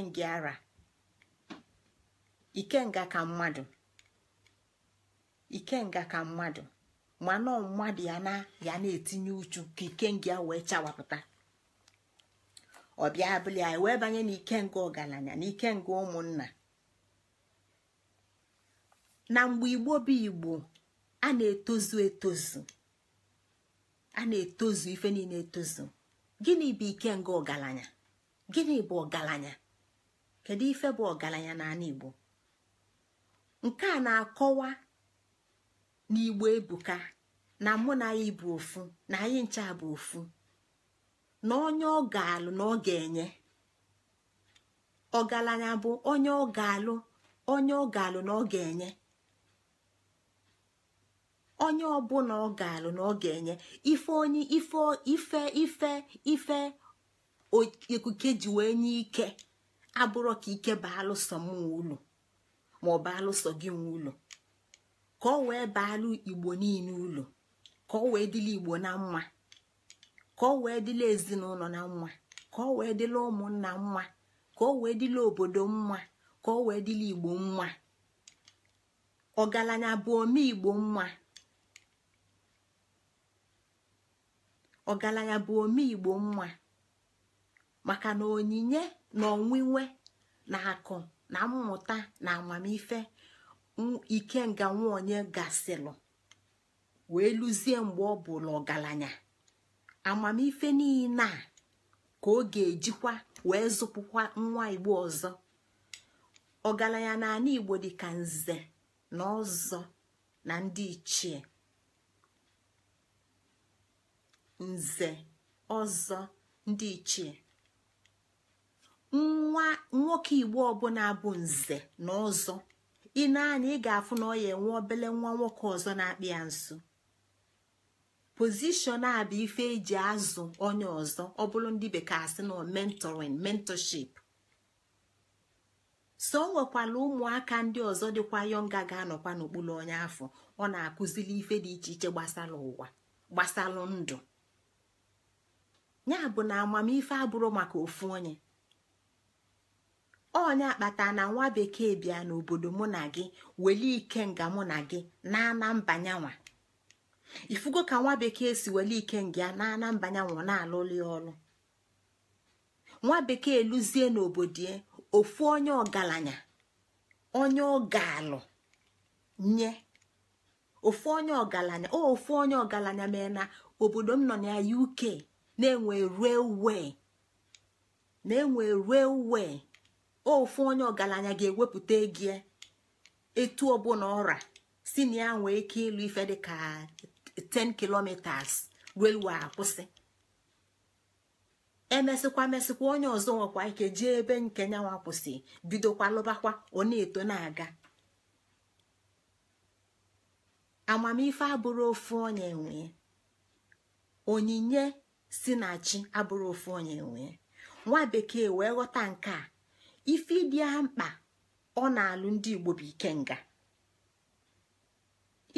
ikenga ra nga ka mmadụ ikenga ka mmadụ mana mmadụ ya na ya na-etinye uchu ka ikenga ya wee chawapụta ọbịa abụli anyị wee banye n'ikenga ọgaranya na ikenga ụmụnna na mgbe igbo bụ igbo a na-etozu etozu a na-etozu ife niile etozu gịnị bụ ikenga ọgaranya gịnị bụ ọgaranya kedu ife bụ ọgaranya n'ala igbo nke a na-akọwa n'igbo ebuka na mụ na anyị bụ ofu na anyị ncha bụ ofu na onye ọ ga-alụ na ọ ga-enye ọgaranya bụ onye ọ ga-alụ onye ọ ga-alụ na ọ ga-enye onye ọbụla ọ ga-alụ na ọ ga-enye ife onye ife ife ife ife ekuke ji wee nye ike abụrụ ka ike bụ alụsọ m nwe ụlọ maọbụ alụsọ gị nwe ụlọ ka ọ wee baalụ igbo niile ụlọ ka ọ wee dịla igbo na mma ka ọ wee dịla ezinụlọ na mma ka ọ wee dịla ụmụnna mma ka ọ wee dịla obodo mma ka ọ wee dịla igbo mma ọgaranya bụ ome igbo mma ọgaranya bụ mma maka na onyinye na onwinwe na akụ na mmụta na amamife ikenga nwaonye gasịlụ wee luzie mgbe ọ bụla ọgaranya amamife niile a ka ọ ga-ejikwa wee zụpụkwa nwa igbo ọzọ ọgaranya na ala igbo dị ka nze na ọzọ na ndị ichie nze ọzọ ndị ichie nwa nwoke igbo ọbụla bụ nze na ọzọ i na anya ị ga-afụ na ọ ya enwe obele nwa nwoke ọzọ na-akpị ya nso pozishọn a bụ ife eji azụ onye ọzọ ọ bụrụ ndị bekee asị na mentoring mentorship so o nwekwala ụmụaka ndị ọzọ dịkwa yọnga ga-anọkwa n'okpuru onye afọ ọ na-akụzili ife dị iche iche gbasara ụwa gbasara ndụ ya bụ na amamife abụrụ maka ofu onye onye akpata na nwa bekee bịa n'obodo mụ na gị welie nga mụ na gị n'ana mbanyanwa ifugo ka nwa bekee si weli ike nga n'ana mbanyanwa na ya ọlụ nwa bekee lụzie n'obodo ofu onye ọgaranya onye ọgalụ nye ofu onye ọgaranya o ofu onye ọgaranya mee na obodo m nọ na UK na-enwe railway na-enwe railway ofu onye ọgaranya ga-ewepụta ego etu ọbụla ọra si na ya nwee ike ịlụ ife dịka 10 kilometers railway akwụsị emesịkwa mesịkwa onye ọzọ nwekwa ike jee ebe nke nyanwa kwụsị bidokwa lụbakwa ọ na-eto na-aga amamife abụrụ ofu onye nwee onyinye si na chi abụrụ ofu onye nwee nwa bekee wee ghọta nke a ife dị mkpa ọ na-alụ ndị igbo bụ ikenga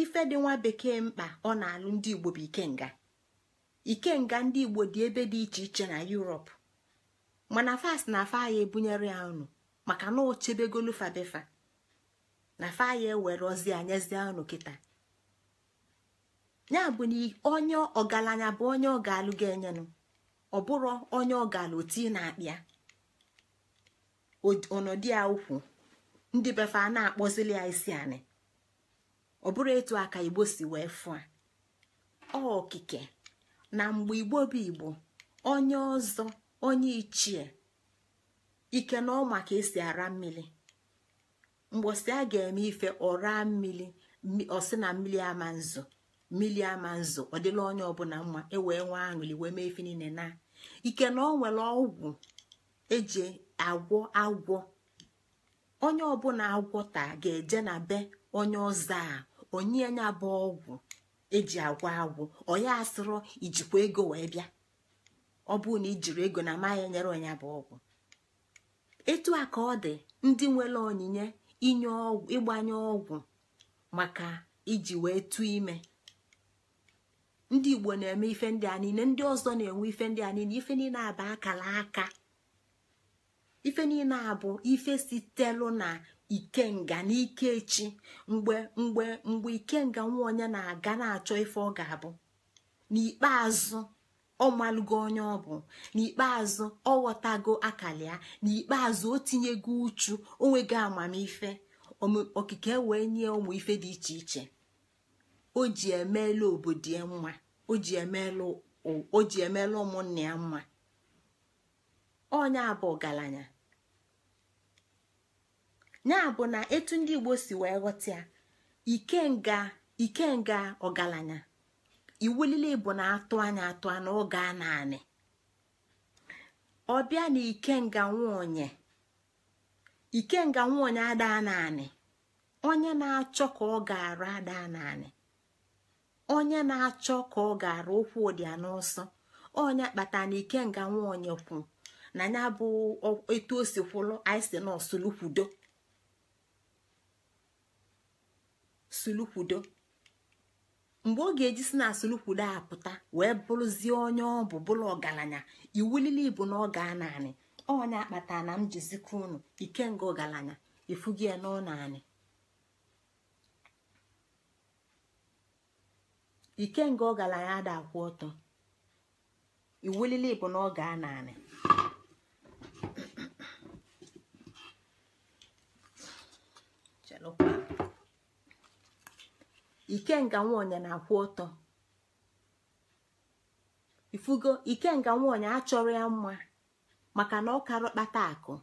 ife dị nwa bekee mkpa ọ na-alụ ndị igbo bụ ikenga ikenga ndị igbo dị ebe dị iche iche na Europe mana fas na afa ebunyere ya unu maka na ochebegolu fabefa na fa ewere ozi anyezie unu kịta ya bụ na onye ọgaranya bụ onye ọ ga-alụ ga-enyenu ọ bụrụ onye ọ ga-alụ na-akpịa ọnọdụ ya ukwu ndị befe a na-akpọzili ya isi anị ọ bụrụ etu aka igbo si wee fụa okike na mgbe igbo bụ igbo onye ọzọ onye ichie ike na ọ maka esi ara mmiri mgbọsi a ga-eme ife ọra mmiri ọsị na mmiri ama nzu mmiri ama nzu ọ dịla onye ọbụla mma ewee nwa aṅụli wee mee niile na ike na ọ nwere ọgwụ eji agwọ agwọ onye ọbụla taa ga-eje na be onye ọzọ a onye nya bụ ọgwụ eji agwọ agwọ onye asịrọ ijikwa ego wee bịa ọ bụụ na ijiri ego na amaghị enyere onye bụ ọgwụ etu a ka ọ dị ndị nwere onyinye inye ọgwụ ịgbanye ọgwụ maka iji wee tụ ime ndị igbo na-eme ife ndị a niile ndị ọzọ na-enwe ife ndị a niile ife niile aba akara aka ife niile a bụ ife sitelu na ikenga n'ike echi mgbe mgbe mgbe ikenga nwa onye na-aga na-achọ ife ọ ga-abụ n'ikpeazụ ọ malụgo onye ọ bụ n'ikpeazụ ọ ghọtago akara ya n'ikpeazụ o tinyego uchu onwego amamife okike wee nye ụmụ ife dị iche iche o ji emeela obodo ya mma o ji emeela ụmụnne ya mma onye abụ ọgaranya ya bụ na etu ndị igbo si wee ghọta ya ikenga ikenga ọgaranya iwulile bụ na atụ anya atụ anya oge a naanị ọbịa na ikenga nwonye ikenga nwonye adaa naanị onye na-achọ ka ọ ga-arụ adaa naanị onye na-achọ ka ọ ga-arụ okwu ụdịa n'ọsọ onye kpatara na ikenga nwonye kwu na ya bụ etu o si kwụlụ anyị si nọọsụ sulukwudo mgbe ọ ga-eji si na sulukwudo apụta wee bụrụzie onye ọ bụ bụrụ ọgaranya iwulili bụ na ọ gaa naanị ọnya akpata na m jizikọ unu ikenga ọgaranya ifugie n'ọnaanị ikenga ọgaranya ada akwụ ọtọ iwulili bụ na ọ gaa naanị ikenga nwaonye na-akwụ ọtọ ifugo ikenga nwaonye achọrọ ya mma maka na ọkara kpata akụ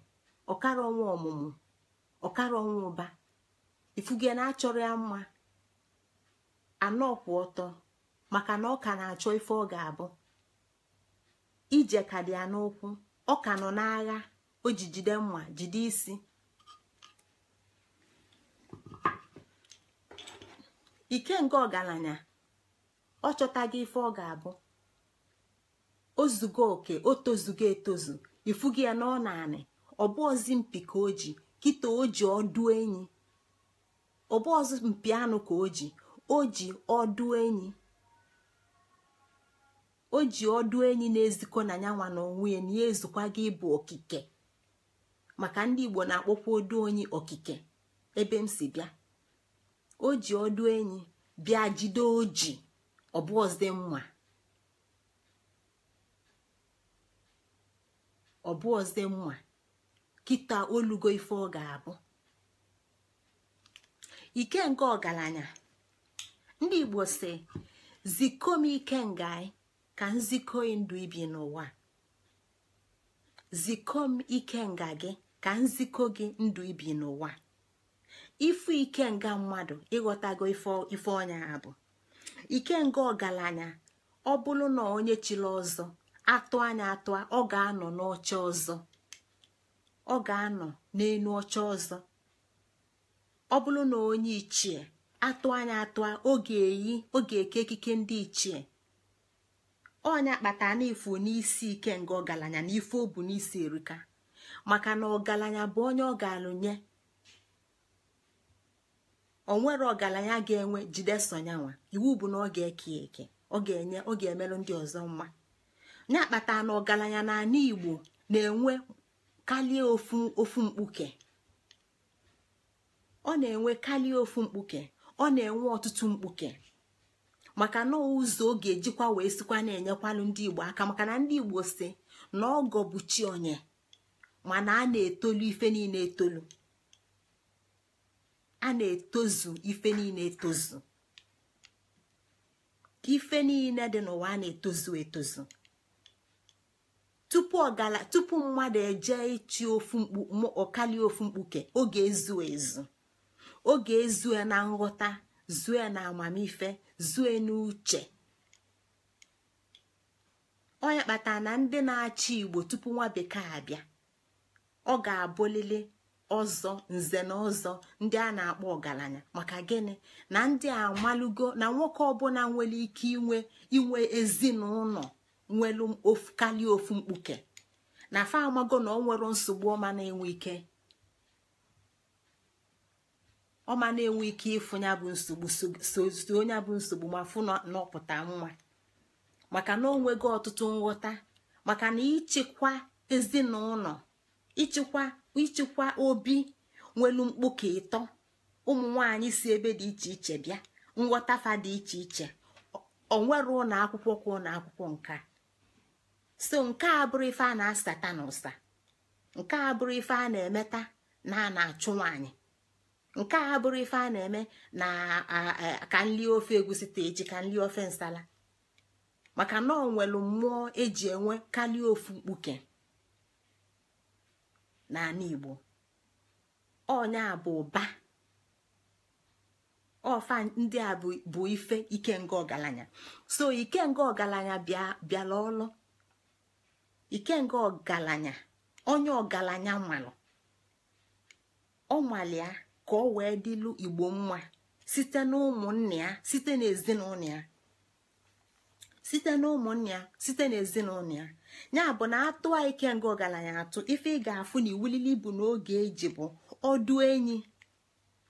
ọkara ọnwa ọmụmụ ọkara ọnwa ụba ifugo na-achọrọ ya mma anọ kwụ ọtọ maka na ọka na-achọ ife ọ ga-abụ ije ka dị ya n'ụkwụ ọka nọ n'agha o ji jide mma jide isi ike nke ọgaranya ọ chọtaghị ife ọ ga-abụ ozugo oke o tozugo etozu ifugi ya na ọ naanị ọbụ ọzụ mpi ka o ji kịta oji ọdụ enyi ọbụ mpi anụ ka o ji o ji ọdụ enyi na-ezikọ na nyanwa na onwe ya na ya ezukwa gị ịbụ okike maka ndị Igbo na-akpọkwa odu onye okike ebe m si bịa o ji ọdụ enyi bịa jide oji ọbụọzị mma ọzọ kịta olugo ife ọ ga-abụ ike nke ọgaranya ndị igbo si zikọọ m ike ka nzikọ nga gị ka nzikọ gị ndụ ibi n'ụwa ifu ike nga mmadụ ịghọtago ife ọnya ha bụ ike nga ọgaranya ọ bụrụ na onye chiri ọzọ atụ anya atụ ọ ga-anọ n'ọcha ọzọ ọ ga-anọ n'elu ọcha ọzọ ọ bụrụ na onye ichie atụ anya atụ oge eyi oge eke ekike ndị ichie ọnya kpata na ifu n'isi ike nga ọgaranya na ife o bụ n'isi erika maka na ọgaranya bụ onye ọ ga-alụnye onwere ọgaranya ga-enwe jide iwu bụ na ọ ga-eke eke ọ ga-enye ọ ga-emerụ ndị ọzọ mma ya akpata na ọgaranya na igbo na-enwe kalie ofu mkpuke ọ na-enwe kalie ofu mkpuke ọ na-enwe ọtụtụ mkpuke maka na ụzọ ọ ga-ejikwa wee sikwa na-enyekwanụ ndị igbo aka maka na ndị igbo si na ọgọ bụ chi onye mana a na-etolu ife niile etolu a na-etozu ife niile etozu ife niile dị n'ụwa a na-etozu etozu tupu ọgala tupu mmadụ eje ịchị ofu mkpu ọkali ofu mkpuke oge ezu ezu oge ezue na nghọta zue na amamife zue n'uche onye kpatara na ndị na-achị igbo tupu nwa bekee abịa ọ ga-abụlili ọzọ nze na ọzọ ndị a na-akpọ ọgaranya maka gịnị na ndị a amalugo na nwoke ọbụla nwere ike inwe inwe ezinụlọ nwere karịa ofu mkpuke na fa amago na ọ nwere nsogbu ọma na-enwe ike ọma na-enwe ike ịfụ ya bụ nsogbu so onye bụ nsogbu ma fụ n'ọpụta nwa maka na o ọtụtụ nghọta maka na ịchịkwa ezinụlọ ịchịkwa ịchịkwa obi nwelu mkpuke ịtọ ụmụ nwanyị si ebe dị iche iche bịa nghọtafa dị iche iche onwere ụlọ akwụkwọ ka ụlọ akwụkwọ nka so nke a bụrụ ife a na-asata na ụsa nke a bụrụ ife a na-emeta na a na-achụ nwaanyị nke a bụrụ ife a na-eme na ka nli ofe egusi ta eji ka nli ofe nsala maka na ọ mmụọ eji enwe karịa ofu mkpuke n'ala igbo a bụ ụba ọfa ndị a bụ ife ikenga ọgaranya so ikenga ọgaranya bịara ọlụ ikenga ọgaranya onye ọgaranya nwalụ ọnwalịa ka ọ wee dịlụ igbo mma site na ụmụnne ya site na ezinụlọ ya site na ya site na ezinụlọ ya ya bụ na atụ a ike nga ọgaranya atụ ife ị ga-afụ na iwulili ibu n'oge eji bụ ọdụ enyi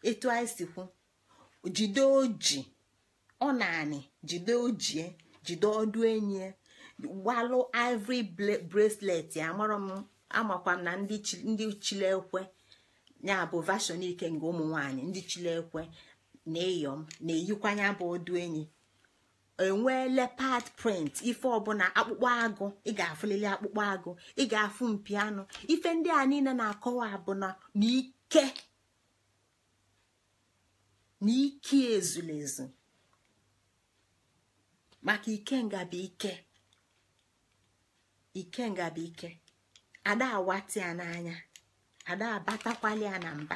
etu anyị si kwu jide oji ọ naanị jide ojie jide ọdụ enyi gbalụ e. ivory bracelet amara m amakwa m na ndị chilekwe ya bụ vashon ike nga ụmụ nwanyị ndị chilekwe na na-eyikwanya bụ ọdụ enwee leopard print ife ọbụla akpụkpọ agụ ị ga-afụlili akpụkpọ agụ ị ga-afụ mpi anụ ife ndị a niile na-akọwa abụna na ike na ike maka ike ngabi ike ike ya n'anya ada ya na mba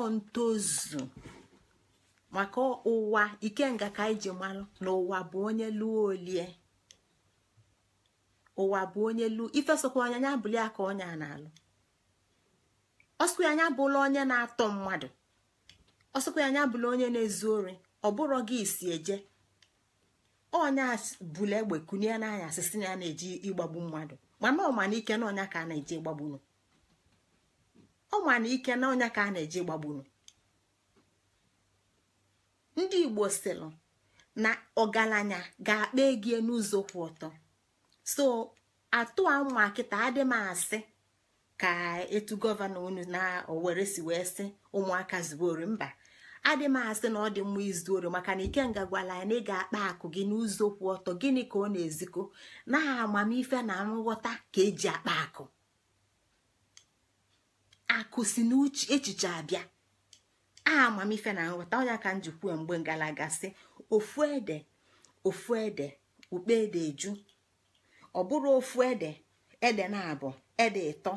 ọ ntozu maka ụwa ikenga ka anyị ji malụ na ụwa bụ onye lụọ olie ụwa bụ onye lụọ ife onye anya bụli ya onye a na-alụ ọsụkwa anya bụla onye na-atọ mmadụ ọsụkwa anya bụla onye na-ezu ori ọ bụrụ gị isi eje ọnya bụla egbe kunye n'anya na ya na-eji ịgbagbu mmadụ mana ọ na ike na ọnya ka a na-eji ịgbagbunu ọ na ike na ọnya ka a na-eji ịgbagbunu ndị igbo sịlụ na ọgaranya ga-akpa egie n'ụzọ kwụ ọtọ so atụ ụmụ akịta adị m asị ka etu gọvanọ unu na owere si wee sị ụmụaka zuwori mba adị m asị na ọ dị mma izuoro maka na ikenga gwara ya na ị ga-akpa akụ gị n'ụzọ kwụ ọtọ gịnị ka ọ na eziko na amamife na nghọta ka eji akpa akụ akụ si n'echiche abịa aha amamife na nghọta onye ka njikwa mgbe ngalaga si ofu ede ofu ede ukpe ede eju ọ ofu ede ede na-abụ ede ịtọ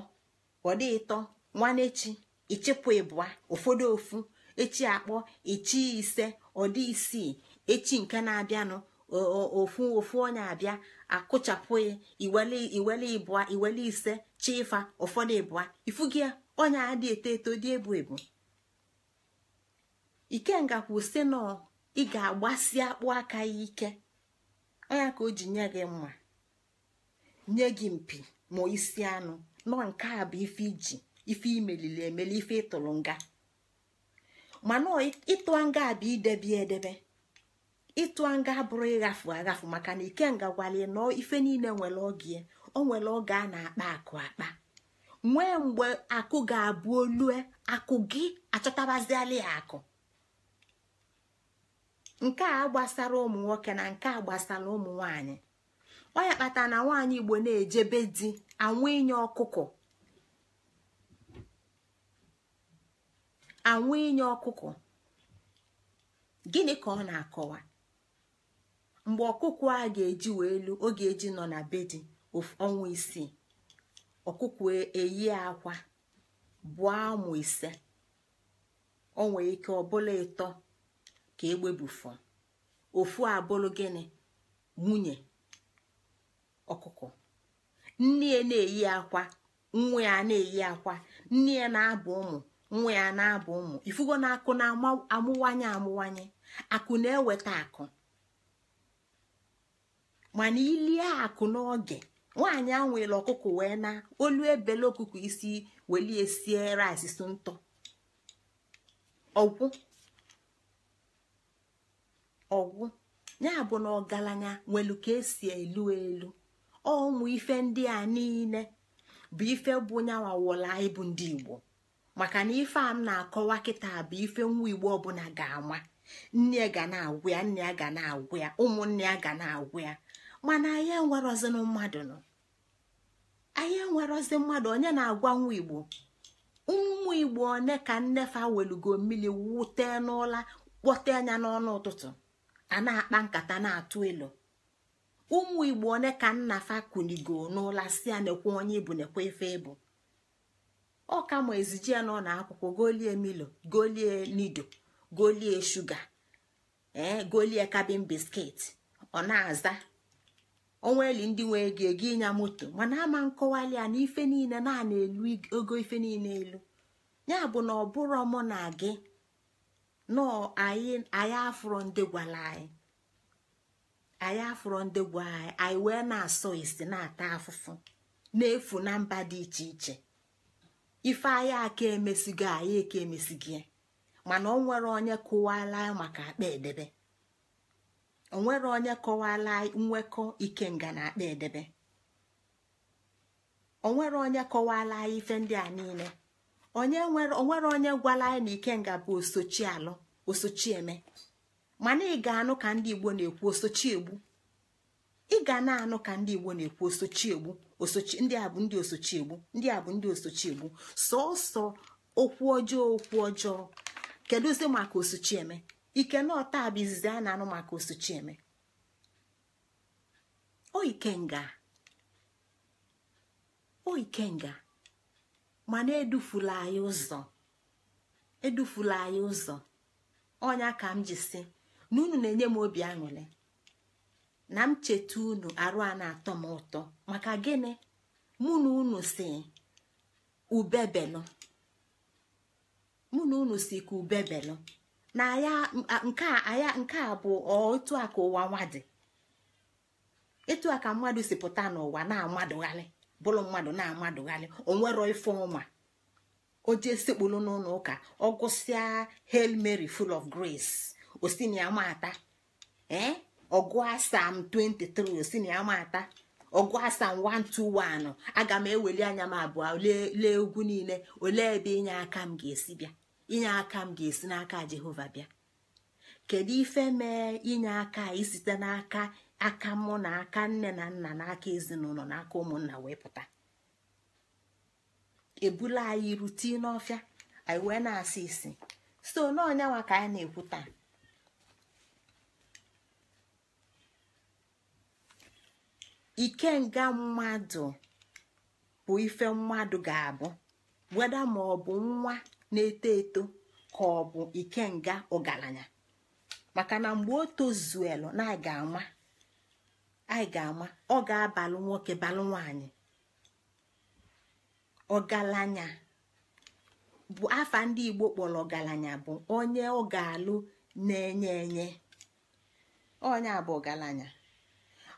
ọ dị ịtọ nwanechi ịchịpụ ịbụa ụfọdụ ofu echi akpọ echi ise ọ dị isii echi nke na-abịanụ ofu ofu onye abịa akụchapụ ya iwele ịbụa iwele ise chi ịfa ụfọdụ ịbụa ifugia onye adị eto eto dị ebu ebu ikenga kwụsị na ị ga-agbasi akpụ aka ya ike onya ka o ji nye gị mma nye gị mpi ma isi anụ nọ nke a bụ ife iji ife imelili emeli ife ịtụrụ nga mana ịtụ nga bụ idebe edebe ịtụ nga bụrụ ịghafu aghafu maka na ikenga gwalie nọ ife niile nwere oge o nwere oge a na-akpa akụ akpa nwee mgbe akụ ga-abụ olue akụ gị achọtabaziala ya akụ nke a gbasara ụmụ nwoke na nke a gbasara ụmụ nwanyị ọ ya kpatara na nwaanyị igbo na-ejebe di anwụ inye ọkụkọ anwụ inye ọkụkọ gịnị ka ọ na-akọwa mgbe ọkụkụ a ga-eji wee elu ọ ga-eji nọ na be di ọnwa isii ọkụkụ eyi akwa bụọ ụmụ ise o ike ọ bụla ịtọ ka egbe fọ ofu abụrụ gịnị nwunye ọkụkọ nne ya na-eyi akwa nwa ya na-eyi akwa nne ya na-abụ ụmụ nwa ya na-abụ ụmụ ifugo na akụ na-amụwanye amụwanye akụ na-eweta akụ mana ilie akụ n'oge nwaanyị anwụela ọkụkọ wee na olu ebele ọkụkọ isi welie sie rice ntọ ọgwụ ọgwụ ya bụ na ọgaranya nwelu ka esi elu elu ọnwụ ife ndị a niile bụ ife bụ nyanwa wụla ịbụ ndị igbo maka na ife a m na-akọwa kịta bụ ife nwa igbo ọbụla ga-ama nne ya ga na-agwụ ya nne ya ga na-agwụ ya ụmụnne ya ga na-agwụ ya mana anyị enwerozinụ mmadụ nọ anyị enwerozi mmadụ onye na-agwa nwa igbo ụmụ igbo one ka nnefa welugo mmiri wute n'ụla kpọte anya n'ọnụ ụtụtụ a na-akpa nkata na-atụ elu ụmụ igbo one ka nna fa kunigo n'ụla si ya nekwa onye ibu nekwa ife ibu ọ kama ezije nọ na akwụkwọ golie milo golie nido golie shuga ee eh, golie kabin biskit ọ na-aza eli ndị nwe ego ego ịnya moto mana ama nkọwali a na ife niile na-ana elu ogo ife niile elu ya bụ na ọ bụrụ mụ na gị nọ anyị anyị afụrọ ndị gwara anyị anyị afụrọ ndị gwa anyị anyị wee na-asọ isi na-ata afụfụ na-efu na mba dị iche iche ife anyị aka emesigo anyị eke emesigo mana o nwere onye kụwala anyị maka akpa edebe o nwere onye kọwala anyị nwekọ ikenga na akpa edebe o nwere onye kọwala anyị ife ndị a niile onye nwere onwere onye gwala anyị na ikenga bụ osochi alụ osochi eme mana ị ga-anụ ka ndị igbo na-ekwu osochi egbu ị ga na-anụ ka ndị igbo na-ekwu osochi egbu osochi ndị a bụ ndị osochi egbu ndị a bụ ndị osochi egbu sọọsọ okwu ọjọọ okwu ọjọọ kedụzi maka osochi eme ike na ọta bụ izizi a na-anụ maka osochi eme o ikenga o ikenga mana edufula anyị ụzọ edufula anyị ụzọ ọnya ka m ji si na unu na-enye m obi aṅụrị na m cheta unu arụ a na-atọ m ụtọ maka gịnị mụ na unu si ubebelụ mụ na unu si ka na nke aya nke a bụ otu a ka ụwa nwa dị a ka mmadụ si pụta n'ụwa na-amadụgharị bụrụ mmadụ na-amadụghalị onwero ife ọma o jee sekpulu n'ụlọ ụka ọ gụsịa hail mary full of grace osiniamata ee ọgụ asam 23 osiniamata ọgụ asam 121 aga m eweli anya m abụọ lee ugwu niile olee ebe inye aka m ga-esi bịa inye aka m ga-esi n'aka jehova bịa kedu ife mee inye aka isite n'aka aka mụ na aka nne na nna na aka ezinụlọ na aka ụmụnna wee pụta ebula anyị rute n'ọfịa anyị wee na-asị isi so n'ọnyanwa ka anyị na-ekwu taa ikenga mmadụ bụ ife mmadụ ga-abụ weda ma ọ bụ nwa na-eto eto ka ọ bụ ikenga ọgaranya maka na mgbe o tozuelu na-aga ama anyị ga-ama ọ ga-abalụ nwoke balụ nwaanyị ọgalanya bụ afa ndị Igbo kpọrọ ọgalanya bụ onye ọ ga-alụ na-enye enye onye a bụ ọgalanya.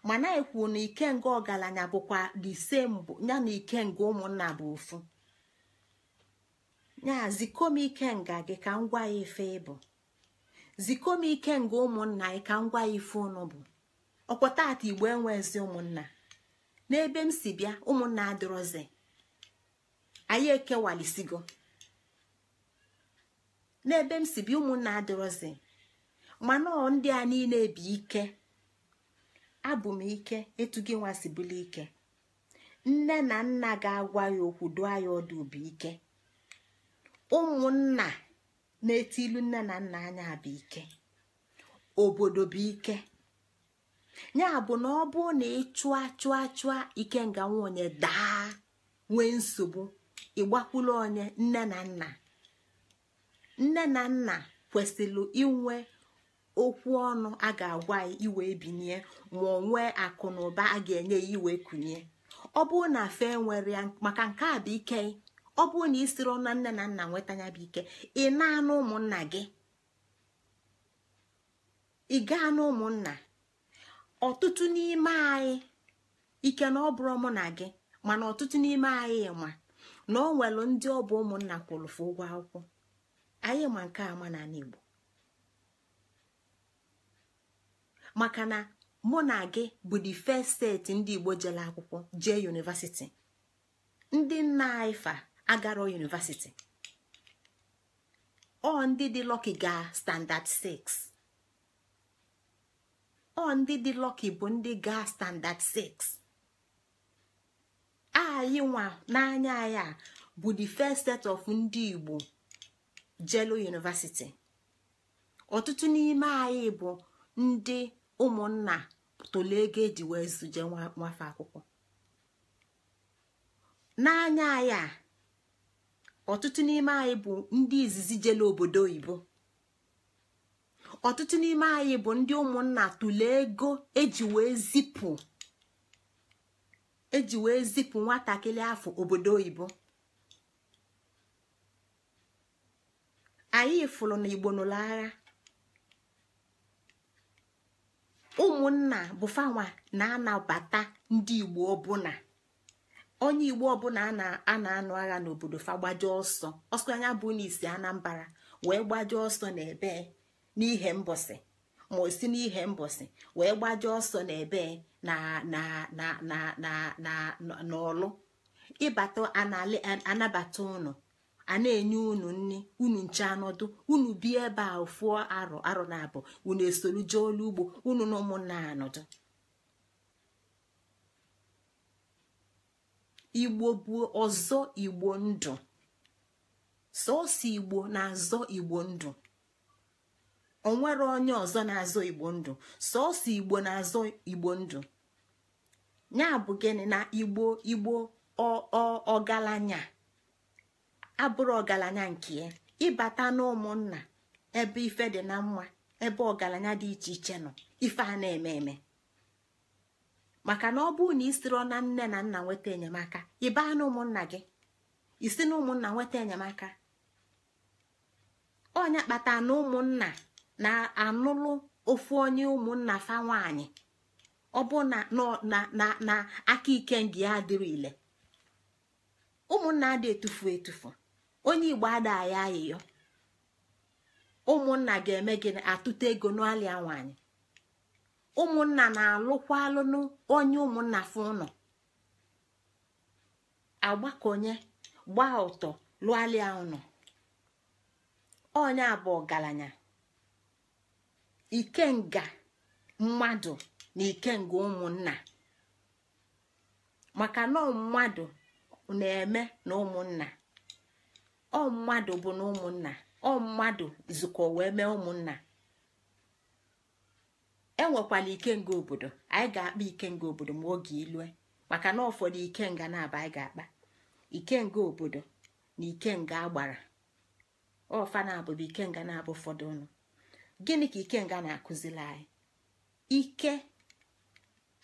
mana ekwu na ikenga ọgalanya bụkwa dise ya na ikenga ụmụnna bụ ofu ya zikom ikenga gị ka m gwa ya ife ịbụ zikom ikenga ụmụnna gị ka m gwa ya ife bụ ọkwa tata igbo enwezi ụmụnna n'ebe m si bịa ụmụnna adịrọzi anyị ekewalisigo n'ebe m si bịa ụmụnna adịrọzi mana ọ ndị a niile bi ike abụ m ike etu gị nwa si ike nne na nna ga-agwa ya okwu dụọ ya ọdụ bụ ike ụmụnna na-eti ilu nne na nna anya bụ ike obodo bụ ike ya bụ na ọ bụ na ị chụa chụa chụa ikenga nwonye daa nwee nsogbu ịgbakwulu onye nne na nna nne na nna kwesịrị inwe okwu ọnụ a ga-agwa iwe binye ma ọ nwee akụ na ụba a ga-enye ya iwe kunye ọ bụrụ na afe nwere ya maka nke a bụ ike ọ bụrụ na ị ọnụ na nne na nna nweta ya bụ ike ị na-anụ gị ị gaa na ọtụtụ n'ime anyị ike na ọ bụrụ mụ na gị mana ọtụtụ n'ime anyị ma na ọ nwere ndị ọ bụ ụmụnna kwụrụfụ ụgwọ akwụkwọ anyị ma nke ama na igbo maka na mụ na gị bụ the first steeti ndị igbo jere akwụkwọ jee yunivasiti ndị nna anyị fa agarọ yunivasiti ọ ndị dị lọki ga standard 6 ọ ndị dị lọki bụ ndị ga standard 6 anyị nwa n'anya ya bụ the first set of ndị Igbo jelu university ọtụtụ n'ime anyị bụ ndị ụmụnna tolu ego eji wee zuje nwafe akwụkwọ n'anya ya ọtụtụ n'ime anyị bụ ndị izizi jelu obodo oyibo ọtụtụ n'ime anyị bụ ndị ụmụnna tụlee ego eji wee zipụ eji zipụ nwatakịrị afọ obodo oyibo anyị fụrụ na igbo nụrụ agha ụmụnna bụfanwa na-anabata ndị igbo ọbụna onye igbo ọbụla a na-anụ agha n'obodo fa gbaje ọsọ ọsọ anya bụ n'isi anambra wee gbaje ọsọ n'ebe n'ihe mbọsị ma osi n'ihe mbọsị wee gbaje ọsọ n'ebe n'ọlụ ịbata anabata ụnụ a na-enye unu nri unu nche anọdụ unu bi ebe a fụọ arọ arọ na abụ unu esolu jee olu ugbo unu na ụmụnna anọdụ igbo bụ ọzọ igbo ndụ sọọsọ igbo na azọ igbo ndụ onwere onye ọzọ na-azọ igbo ndụ sọọsọ igbo na-azọ igbo ndụ ya bụ gịnị na igbo igbo ọgaranya abụrụ ọgaranya nke ya ịbata n'ụmụnna ebe ife dị na mma ebe ọgaranya dị iche iche nọ ife a na-eme eme maka na ọ bụrụ na isiro na nne na nna nweta enyemaka ịbaa na gị isi na ụmụnna nweta enyemaka ọnya kpata na ụmụnna na-anụlụ ofu onye ụmụnna fa nwanyị ọ bụ na aka ike ndị ya dịrị ile ụmụnna dị etufu etufu onye igbo ada ya ayịyọ ụmụnna ga-eme gịnị atụta ego n'alịa nwanyị ụmụnna na-alụkwa onye ụmụnna fụ ụnọ agbakọnye gbaa ụtọ lụọ alịa ụnọ onye abụ ọgaranya ikenga mmadụ na ikenga ụmụnna maka na mmadụ na-eme na ụmụnna ọ mmadụ bụ na ụmụnna ọ mmadụ zukọ wee mee ụmụnna enwekwala ikenga obodo anyị ga-akpa ikenga obodo ma oge ilue maka na ụfọdụ ikenga na-aba anyị ga-akpa ikenga obodo na ikenga agbara ọfa na-abụbụ ikenga na-abụ ụfọdụ ụnụ gịnị ka ikenga na-akụzili anyị ike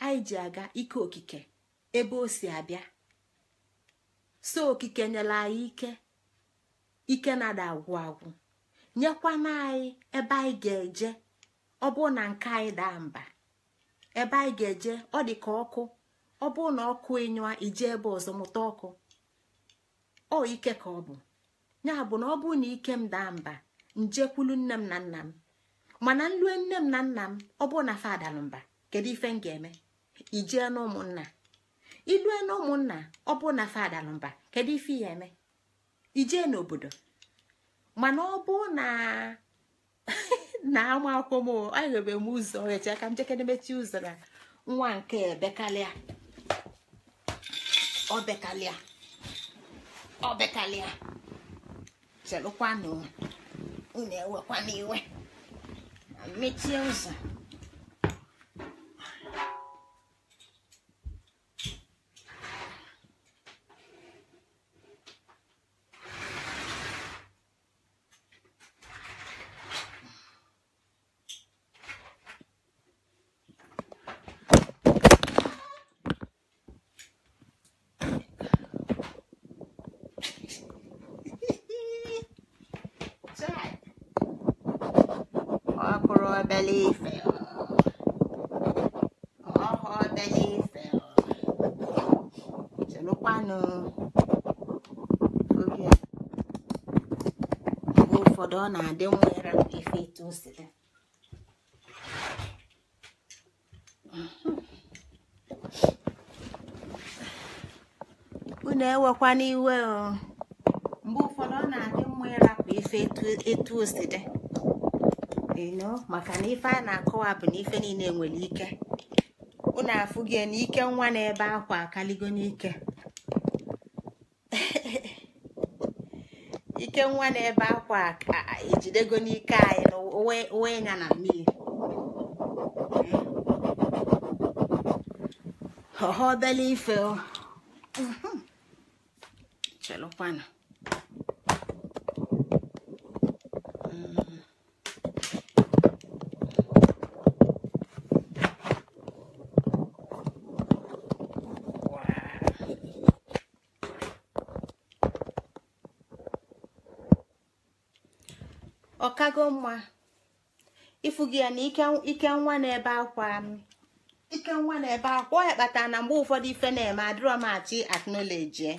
anyị ji aga ike okike ebe o si abịa so okike nyere anyị ike ike na-ada agwụ agwụ nyekwana anyị ebe anyị ga-eje ọ na nke anyị daa mba ebe anyị ga-eje ọ dị ka ọkụ ọ na ọkụ ịnyụa ije ebe ọzọ mụta ọkụ ọ ike ka ọ bụ ya bụ na ọ bụrụ na ike m daa mba njekwulu nne m na nna m mana nlue nne m na nna m ọ bụrụ na fadalụ mba kedu ife m ga-eme ijee n'ụmụnna ilue n'ụmụnna ụmụnna ọ bụrụ na fadalụ mba kedu ife ya eme ijee n'obodo mana ọ bụ na na ama akwụkwọ m anyịrebe m ụzọ echi aka m jekere mechi ụzọ na nwa nke bekalịa obekalịa obekalịa chelụkwanụ unu ewekwana iwe mechie ụzọ ọnọdụ ọ na-adị nwa ife etu o unu ewekwa n'iwe mgbe ụfọdụ ọ na-adị mma ịrapụ ife etu o eno maka na ife a na-akọwa bụ na ife niile nwere ike unu afụghị n'ike nwa na-ebe akwa akaligo n'ike nke nwa na-ebe akwa ka ejidego n'ike anyị na uwe ya na mmiri ọha obele ife chelụkwanụ efughị ya na ike nwa na-ebe akwa ike nwa na-ebe akwa onye kpatara na mgbe ụfọdụ ife na-eme adịrọ m achị aknọleji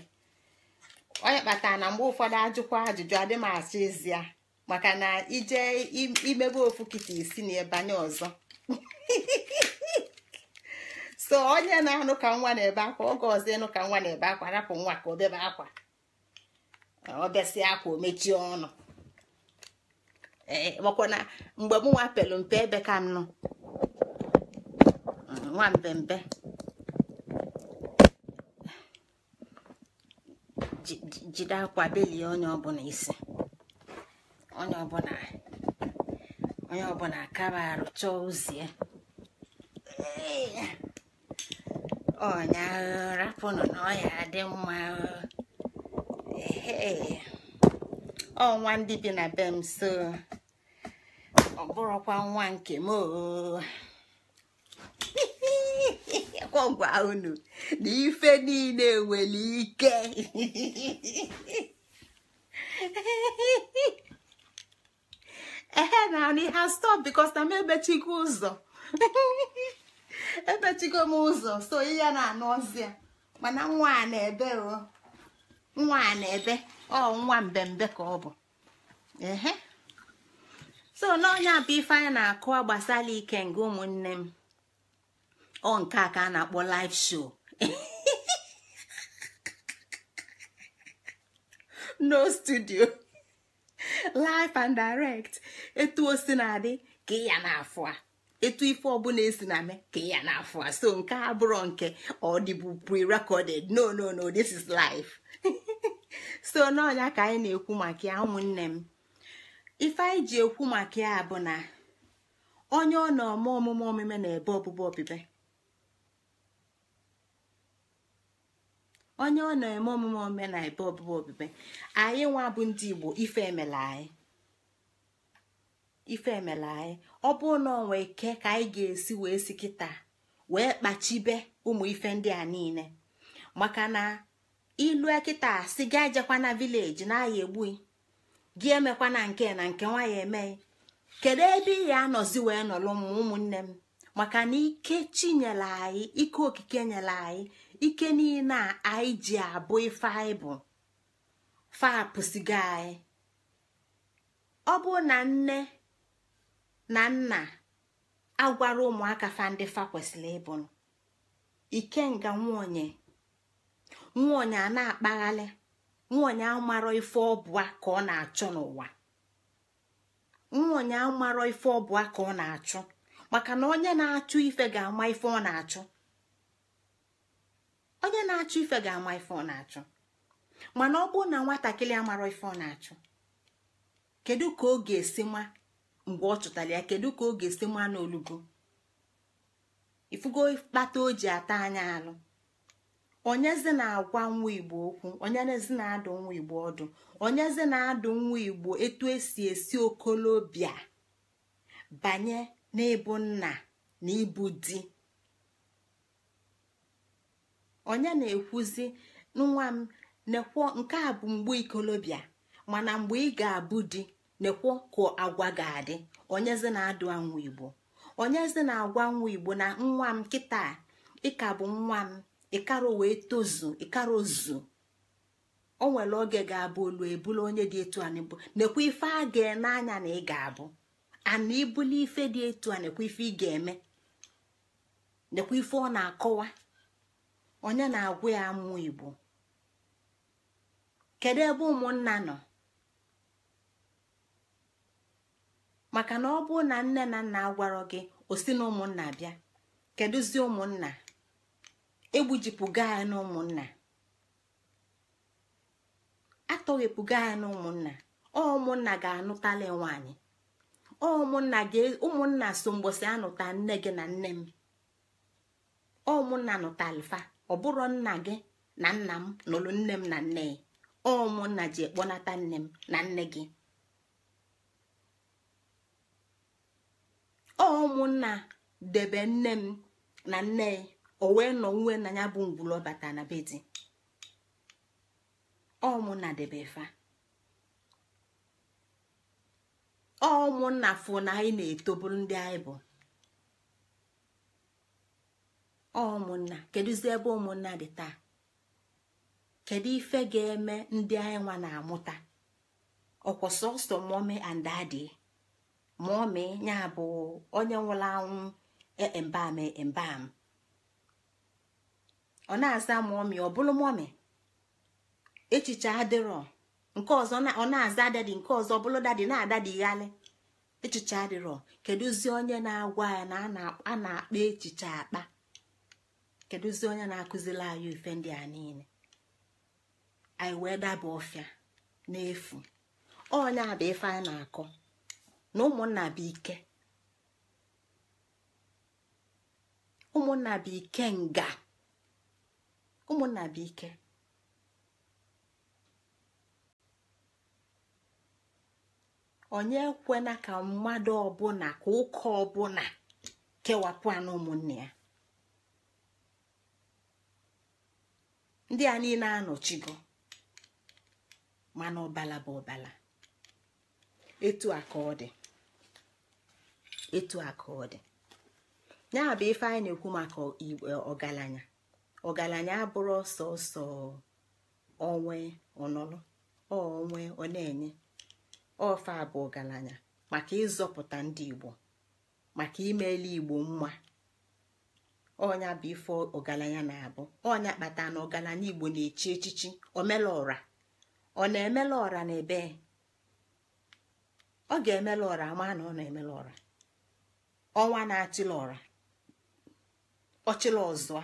onye kpatara na mgbe ụfọdụ ajụkwa ajụjụ adị m ezi maka na ije imebe ofu kịta isi na ebanye ọzọ so onye na-anụ ka nwa na-ebe akwa oge ọzọ ịnụ ka nwa na-ebe akwa rapụ nwa ka obebe bebe akwa ọ akwa o mechie ọnụ makwa eh, eh, na mgbe m nwa pelu mpe ebe ka m nọ mm, nwa mpempe jide akwa belie onye ọbụla isi onye ọbụla onye ọbụla akaba arụ chọọ ozie ọnyahụ rapụ na ọya dị mma ọ nwa ndị bi na be m so ọ bụrụkwa nwa nke m gwagwa unu na ife niile nwere ike ehe na nri ha stop because na m emechigo ụzọ emechigo m ụzọ so ihe na-anụ ọzọ mana nwa a na-ebe nwa a na-ebe ọ nwa mbembe ka ọ bụ ehe so n'ọnya bụ ife anyị na-akụ gbasara ike nke ụmụnne m ọ nke a ka a na-akpọ live show no studio live and direct etu o si na-adị ya na-afụ a etu ife ọbụla esi na me ka ya na-afụ a so nke a nke ọ pre-recorded no no no this is live so n'ọnya ka anyị na-ekwu maka ya ụmụnne m ife anyị ji ekwu maka ya bụ na onye ọ na-eme ọmụmụ omume na ebe ọbụbụ onye ọ na-eme omume na ebe ọbụbụ anyị nwa bụ ndị igbo ife emela anyị ife emela anyị ọ bụrụ ike ka anyị ga-esi wee si kịta wee kpachibe ụmụ ife ndị a niile maka na ilue kịta si ga ejekwa na vileji na agha egbughị. gị emekwa na nke na nke nwa ya emeghị kedu ebe ị ga anọzi wee nọlụ m ụmụnne m maka na ike chinyere anyị ike okike nyere anyị ike niile a anyị ji abụ ife anyị bụ fapụsigo anyị ọ bụ na nne na nna agwara ụmụaka fa fa kwesịrị ịbụ ikenga nwaonye nwaonye a na-akpaghalị nwaonye amarọ ife ọbụa ka ọ na-achụ n'ụwa nwaonye amarọ ife ọbụa ka ọ na-achụ maka na onye na-achụ ife ga-ama ife ọ na-achụ onye na-achụ ife ga-ama ife ọ na-achụ mana ọ bụrụ na nwatakịrị amarọ ife ọ na-achụ kedu ka ọ ga-esi ma mgbe ọ chụtara ya kedu ka ọ ga-esi ma n'olugo ifugo kpata o ji ata anya alụ onyezi na-agwa nwa igbo okwu onyezi na-adụ nwa igbo ọdụ onyezi na-adụ nwa igbo etu esi esi okolobịa banye n'ịbụ nna na ịbụ di onye na-ekwuzi nwa m nekwo nke a bụ mgbe ikolobịa mana mgbe ị ga-abụ di nekwo ka agwa ga-adị onyezi na-adụ nwa igbo onyezi na-agwa nwa igbo na nwa m kịta ịka bụ nwa m ịkara wee tozu ịkara ozu o nwere oge ga-abụ olu ebula onye dị etu a n'ebu nekwa ife a ga anya na ị ga-abụ ana ibuli ife dị etu a nekwa ife ị ga-eme nekwa ife ọ na-akọwa onye na-agwụ ya amụ igbo kedu ebe ụmụnna nọ maka na ọ bụ na nne na nna agwarọ gị osi na ụmụnna bịa kedụzi ụmụnna egbujipụga anyị na ụmụnna atọghepụga anyị na ụmụnna ọ ụmụnna ga anụtala nwaanyị ọ ụmụnna so mgbọsị anụta nne gị na nne m ọ ụmụnna nụtalifa ọ bụrụ nna gị na nna m nụrụ nne m na nne ya ọ ụmụnna ji ekpọnata nne m na nne gị ọ ụmụnna debe nne m na nne ya o wee nọ nwe na ya bụ ngwụlọ ọbata na bedi ọmụna debefa ọmụnna fụ na anyị na-etoburu ndị anyị bụ ọmụnna kedụzi ebe ụmụnna dị taa kedu ife ga-eme ndị anyị nwa na-amụta ọkwa sọsọ mọmi and dadi mọmi ya bụ onye nwụrụ anwụ embam embam e, ọ na-aza mọmị ọ bụrụ mọmị echiche adịrọ nke ọzọ ọ na-aza dadi nke ọzọ bụrụ dadi na-adadi yali echiche adịrọ kedụzi onye na-agwa ya na a na-akpa echiche akpa kedụzi onye na-akụziri anyị ife ndị a niile anyị wee daba ọfịa n'efu onye a bụ ife a na-akọ na ụmụnna bụ ike ụmụnna bụ ike nga ụmụnna bụ ike onye ekwena ka mmadụ ọbụla ka ụka ọbụla kewapụ anụ ụmụnne ya ndị a niile anọchigo mana ọbala bụ ọbala etu a ka ọ dị etu a ọ dị ya bụ ife anyị na-ekwu maka ọgaranya ọgaranya abụrụ ọsọ ọsọ onwe ọnọrọ onwe ọ na-enye ofe a bụ ọgaranya maka ịzọpụta ndị igbo maka imele igbo mma ọnya bụ ife ọgaranya na-abụ ọnya kpata na ọgaranya igbo na-echi echichi omela ọra ọ na-emela ọra na ebe ọ ga emele ọra ama na ọ na emele ọra ọnwa na-achịla ọra ọchịla ọzọ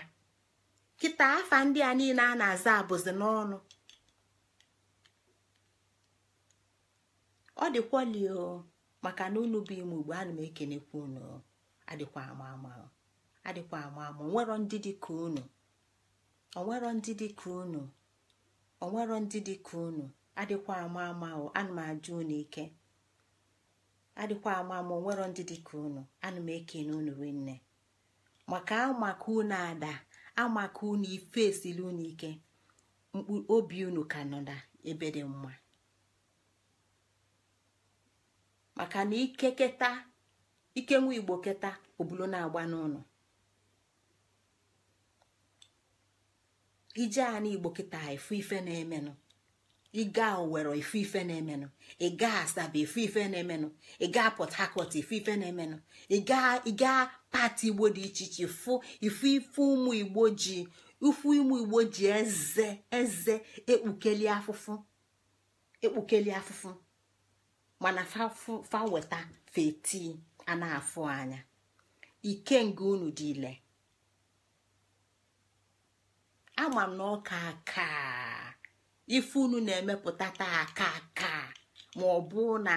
kịta afa ndị a niile a na-aza abụzi n'ọnụ ọ dịkwalio maka na unu bụ ime ugbo ana m ekenekwa unu ama ama adịkwa ama ndị dị unu onwero ndị dị unu onwero ndị dị unu adịkwa ama ama ama ama amaka unu ife esili unu ike mkpu obi unu ka nọ na ebe dị mma maka na ike keta ike nwa igbo keta obulo na-agba n'ụlọ ije a na igbo ha efu ife na-emenụ ịga owere ife ife na-emenụ ịga asaba ife ife na-emenụ ịga port harcourt ife ife na-emenụ ịga pati igbo dị iche iche fụ ife ife ụmụ igbo ji ifu ụmụ igbo ji eze eze ekpukeli afụfụ ekpukeli afụfụ mana faweta feti a na-afụ anya ike nke unu dị ile ama m na ọka ka. ife unu na-emepụta taa aka aka ma ọ bụ na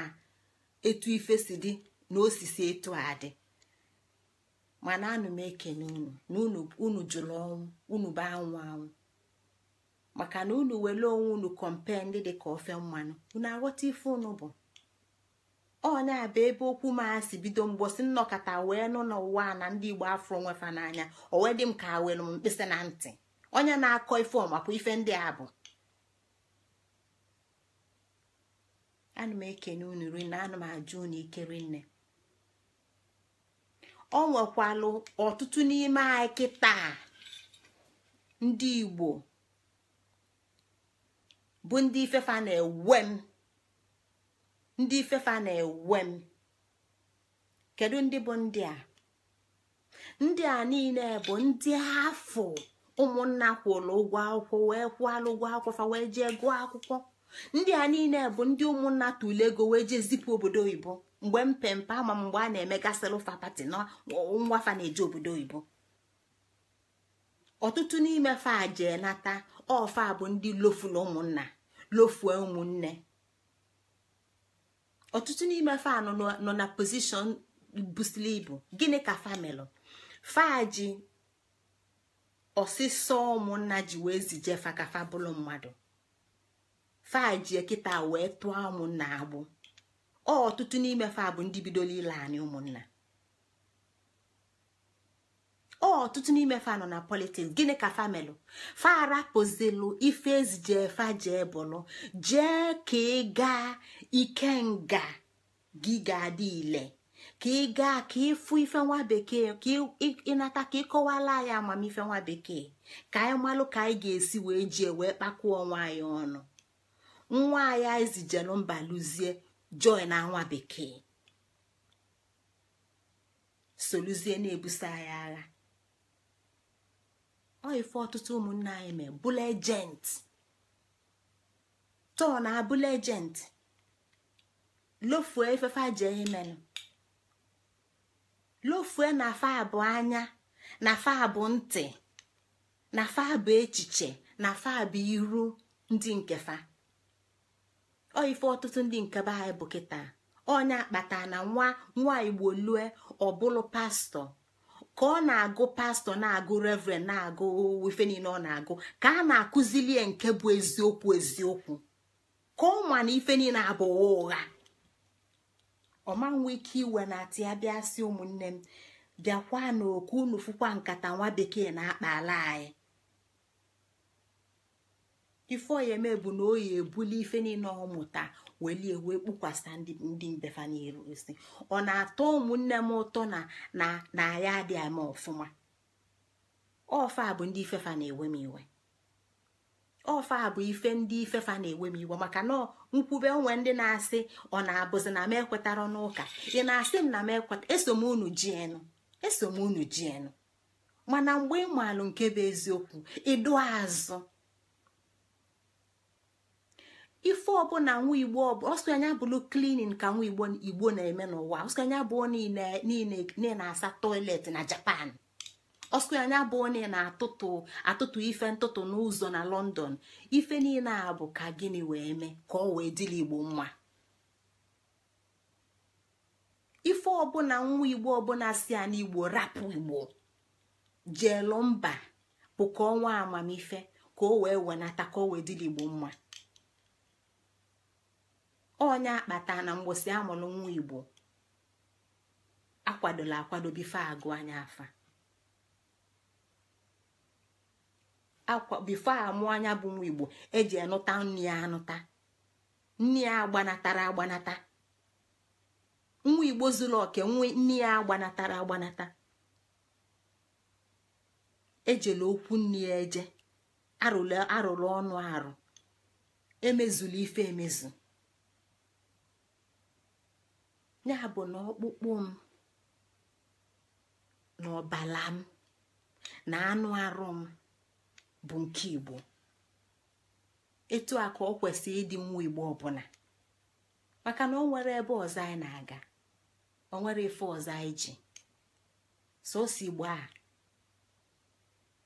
etu ife si dị na osisi etu a dị mana anụ m ekene unu na unu jụrụ ọnwụ unu bụ anwụ anwụ maka na unu were onwe unu kọmpe ndị dị ka ofe mmanụ unu aghọta ife unu bụ ọnya bụ ebe okwu m asị bido mgbosi nnọkọta wee nụ n'ụwa na ndị igbo afọ onwefa n'anya o wee dị m ka were m mkpịsị na ntị onye na-akọ ife ọmapụ ife ndị a bụ ana m ekene unu na ana m ajụ unu nne o nwekwalụ ọtụtụ n'ime anyị kịta ndị igbo bụ ndị ifefa na-ewe m ndị ifefa na-ewe m kedu ndị bụ ndị a ndị a niile bụ ndị afọ ụmụnna kwụrụ ụgwọ akwụkwọ wee kwụalụ ụgwọ akwụkwọ wee jee gụọ akwụkwọ ndị a niile bụ ndị ụmụnna tụle ego wee jee zipụ obodo oyibo mgbe mpempe ama mgbe a na emegasịrị gasịlụfa pati na nwafa na-eje obodo oyibo ọtụtụ n'ime fa jee nata ọfa bụ ndị lofula ụmụnna lofue ụmụnne ọtụtụ n'ime fa nọ na pozishọn busili ibu gịnị ka famelụ fa ji ọsịsọ ụmụnna ji wee zije fa ka fa bụrụ mmadụ fajie kịta wee tụọ ụmụnna agbụ ọtụtụ n'ime fa bụ ndị bidoro ile anyị ụmụnna ọtụtụ n'ime fa nọ na politiks gịnị ka famelụ farapụzilu ife ezije fa jee bụlụ jee ka ị gaa nga gị ga-adị ile ka ị gaa ka ịfụ ife nwa bekee ka ịnata ka ịkọwala anyị amamife nwa bekee ka anyị malụ ka anyị ga-esi wee jee wee kpakwuo onwe anyị ọnụ nwa ya ezijelu mba luzie joy na nwa bekee soluzie na-ebuso anyị agha ọ ife ọtụtụ ụmụnne anyị mee bụla ejent tọọ na abụla ejent lofuo efefe jee imenụ lofuo na fa bụ anya na fa abụ ntị na fa abụ echiche na fa abụ iru ndị nke ọ ife ọtụtụ ndị nke be anyị bụ kịta onye akpata na nwa nwa igbo lue ọbụlụ pastọ ka ọ na-agụ pastọ na-agụ reverend na-agụ ife niile ọ na-agụ ka a na-akụzili nke bụ eziokwu eziokwu ka ọ ma na ife niile abụghị ụgha ọma nwe ike iwe na ati ya si ụmụnne m bịakwa n'oku unu fụkwa nkata nwa bekee na-akpa ala anyị ife ọya eme bụ na oyi ebuli ife niile ọmụta welie wee kpukwasa ndị mbefa n'iru isi ọ na-atọ ụmụnne m ụtọ na ya adị ama ọfụma ọfa bụ ndị ifefa na-ewe m iwe ọfa bụ ife ndị ifefa na-ewe m iwe maka na nkwube onwe ndị na-asị ọ na-abụzi na m ekwetara n'ụka ị na-asị m na m ekweta eso m unu ji eso m unu ji mana mgbe ị maalụ nke bụ eziokwu ịdụ azụ ife ọbụla nwa igbo ọsọ anya bụlụ klinin ka nwa igbo na-eme n'ụwa ọsọ anya bụ niile na-asa toilet na japan ọsọ anya bụ onye na-atụtụ atụtụ ife ntụtụ n'ụzọ na london ife niile a bụ ka gịnị wee mee ka ọ wee dịla igbo mma ife ọbụla nwa igbo ọbụla si ya n'igbo rapụ igbo jelụ mba bụ ka ọnwa amamife ka o wee wenata ka o wee dịla igbo mma onye akpata na mgbosi amụrụ nwa igbo akwadola akwado bife agụ anya afa bifo amụ anya bụ nwa igbo eji anụta nri ya anụta nri ya agbanatara agbanata nwa igbo zuru oke nri ya agbanatara agbanata ejela okwu nri ya eje arụrụ ọnụ arụ emezuru ife emezu ya bụ na ọkpụkpụ m na ọbala m na anụ arụ m bụ nke igbo etu a ka ọ kwesịrị ịdị nwa igbo ọbụla maka na ọ nwere ebe ọzọ anyị na-aga ọ nwere ife ọzọ anyị ji sosi igbo a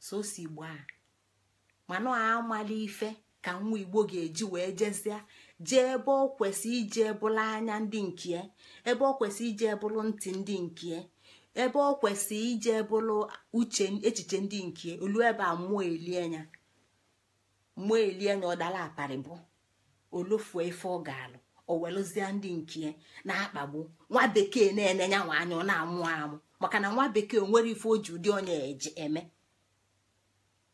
sosi igbo a mana amala ife ka nwa igbo ga-eji wee jezie jee ebe ọ kwesị ije bụla anya ndị nke e, ebe ọ kwesị ije bụrụ ntị ndị nke e, ebe ọ kwesị ije bụrụ uche echiche ndị nkie e, olu ebe a mmụọ elie ya mmụọ elie ya ọ dara aparị bụ olofuo ife ọ ga-alụ owelụzie ndị nkie na-akpagbu nwa bekee na-enenya nwa anya ọ na-amụ amụ maka na nwa bekee nwere ife o ji ụdị onye eji eme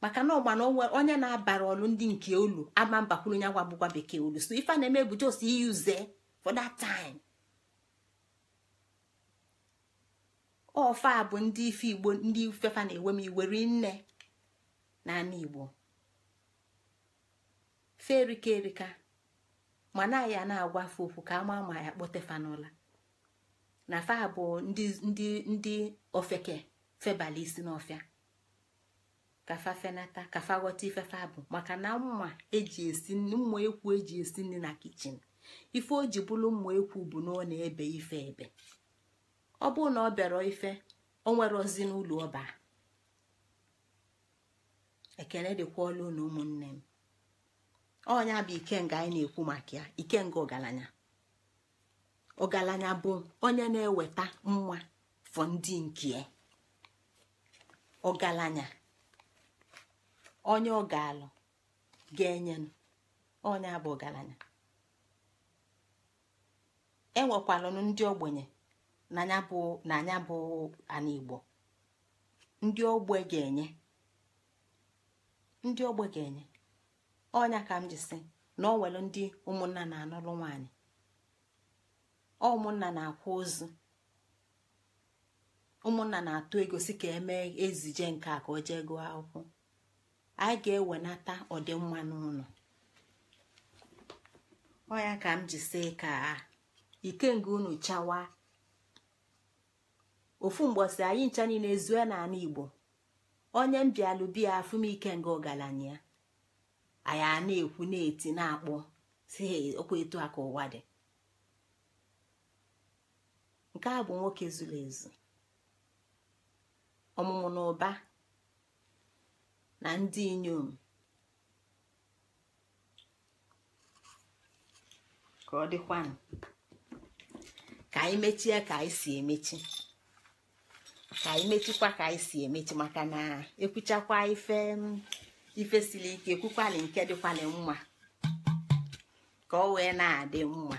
maka na ọgbana onye na-abara ọlụ ndị nke olu ama mbakwuru ya gwa bụkwa bekee olu so ife na-eme bụ jos iyuze for that time ofa bụ ndị ife igbo ndị ifefa na-ewe m iweri nne n'ala igbo fe erika erika ma na ya na-agwa fe okwu ka ama ma ya kpotefanụla na fa ndị ndị ofeke febala isi n'ọfịa kafafenata fa fenata ka fa bụ maka na mma eji esi mma ekwu eji esi nri na kichin ife o ji bụrụ mma ekwu bụ na ọ na-ebe ife ebe ọ bụrụ na ọ bịara ife o nwere ozi n'ụlọ ọba ekene dịkwa ọla ụlọ ụmụnne m ọnya bụ ikenga anyị na-ekwu maka ya ikenga ọgaranya ọgaranya bụ onye na-eweta mma fọ ndị nke ọgaranya onye ọ ga-alụ ga-enyenụ onye abụ ọgaranya enwekwalụnụ ndị ogbenye na anya bụ ana igbo ndị ogbe ga-enye ndị ogbe ga-enye ọnya ka m ji sị na ọ nwere ndị ụmụnna na-anụrụ nwaanyị ụmụnna na-akwa ozu ụmụnna na-atụ ego si ka emee ezije nke a ka o jee gụọ akwụkwọ anyị ga-ewenata ọdịmma n'ụlọ ọ ya ka m ji si ka ikenge unu chawa ofu mgbọsị anyị ncha niile ezue n'ala igbo onye mbialụ biya afụmike nga ọgaranya anyị a na-ekwu na-eti na-akpọ si okwu etu a ka ụwa dị nke a bụ nwoke zuru ezu ọmụmụ na ụba na ndị inyom ka ọ dịkwanụ ka anyị mechie ka anyị si emechi ka anyị mechikwa ka anyị si emechi maka na ekwuchakwa ife ife siri ike ekwukwali nke dịkwali mma ka ọ wee na-adị mma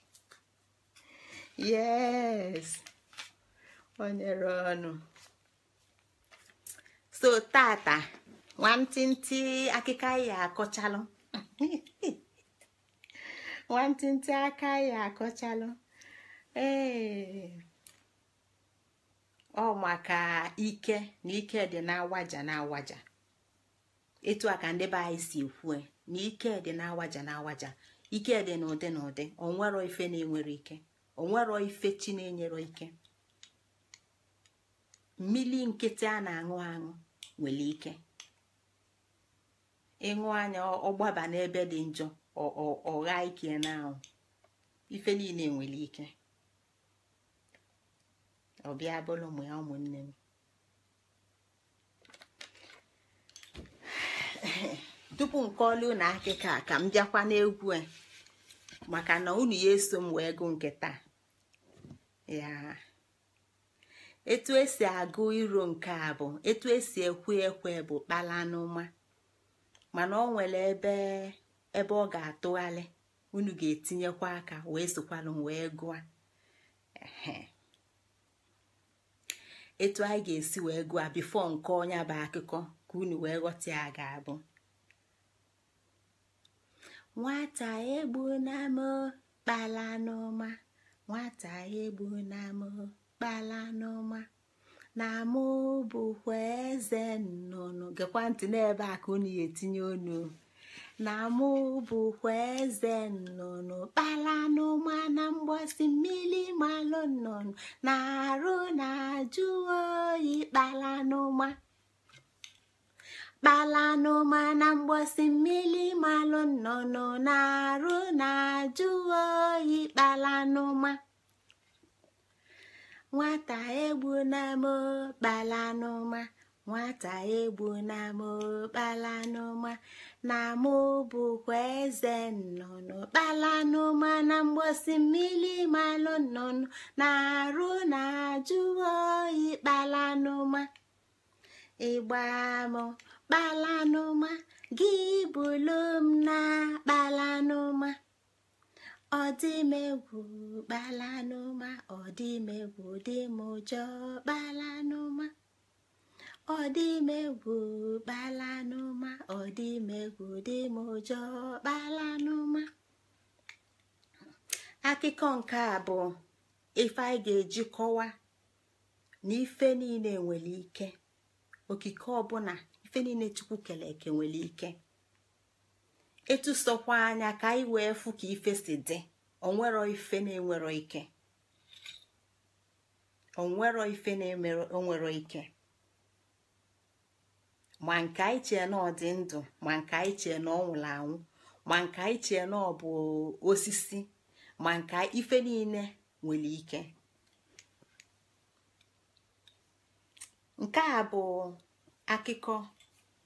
yes onyere ọnụ so tata nwantịntị akịka ya akọchalụ nwantịntị aka ya akọchalụ ee ọ maka ike na ike dị na-awaja na-awaja etu a ka ndị be anyị si na ike dị na-awaja na-awaja ike dị n'ụdị n'ụdị onwero ife na-enwere ike onwero ife chi na-enyere ike mmiri nkịtị a na-aṅụ aṅụ nwere ike ịṅụ anya ọgbaba n'ebe dị njọ ọgha ike na ahụ ife niile nwere ike ọbịa bụrụ ụmụ ya ụmụnne m tupu nke ọlụ na akịka ka m bịakwa n'egwu a maka na unu ya eso m wee gụ nke taa etu esi agụ iro nke a bụ etu esi ekwe ekwe bụ kpala n'ụma mana ọ nwere ebe ebe ọ ga-atụgharị unu ga-etinyekwa aka wee sokwalụ wee gụọ etu anyị ga-esi wee gụọ bifọ nke onye bụ akụkọ ka unu wee ghọta ya ga-abụ nwata egbu na kpala nwata egbu na akpala n'ọma na mụ eze nnụnụ gekwa ntị n'ebe a ka unu ya etinye onu na mụ eze nnụnụ kpala n'ụma na mgbọsị mmiri malụ nnụnụ na-arụ na-ajụ oyi kpala n'ụma kpala n'ụma na mgbọsị mmiri malụ nnụnụ na-arụ na-ajụ oyi kpala n'ụma nwata egbu n'ama n'ụma nwata egbu n'ama kpalanụma na-amụ bụkwa eze nnụnụ kpala n'ụma na mgbosi mmiri malụ nnụnụ na-arụ na-ajụ oyi kpalanụma n'ụma ịgba m gị bụlụ m na kpalanụma ọ dị m egwu kpalanụma ọ dị egwu ọ egwu kpalanụma dị kpalanụma akụkọ nke a bụ ife anyị ga-eji kọwa na ife niile nwere ike okike ọbụla ife niile chukwu kere nwere ike etụsokwa anya ka anyị wee fụ ka ife si dị onwero ife na-enwero ike onwero ife na-enwero ike ma nke anyị chee na ọ dị ndụ ma nke anyị chee na ọ anwụ ma nke anyị chee na ọ bụ osisi ma nke ife niile nwere ike nke a bụ akụkọ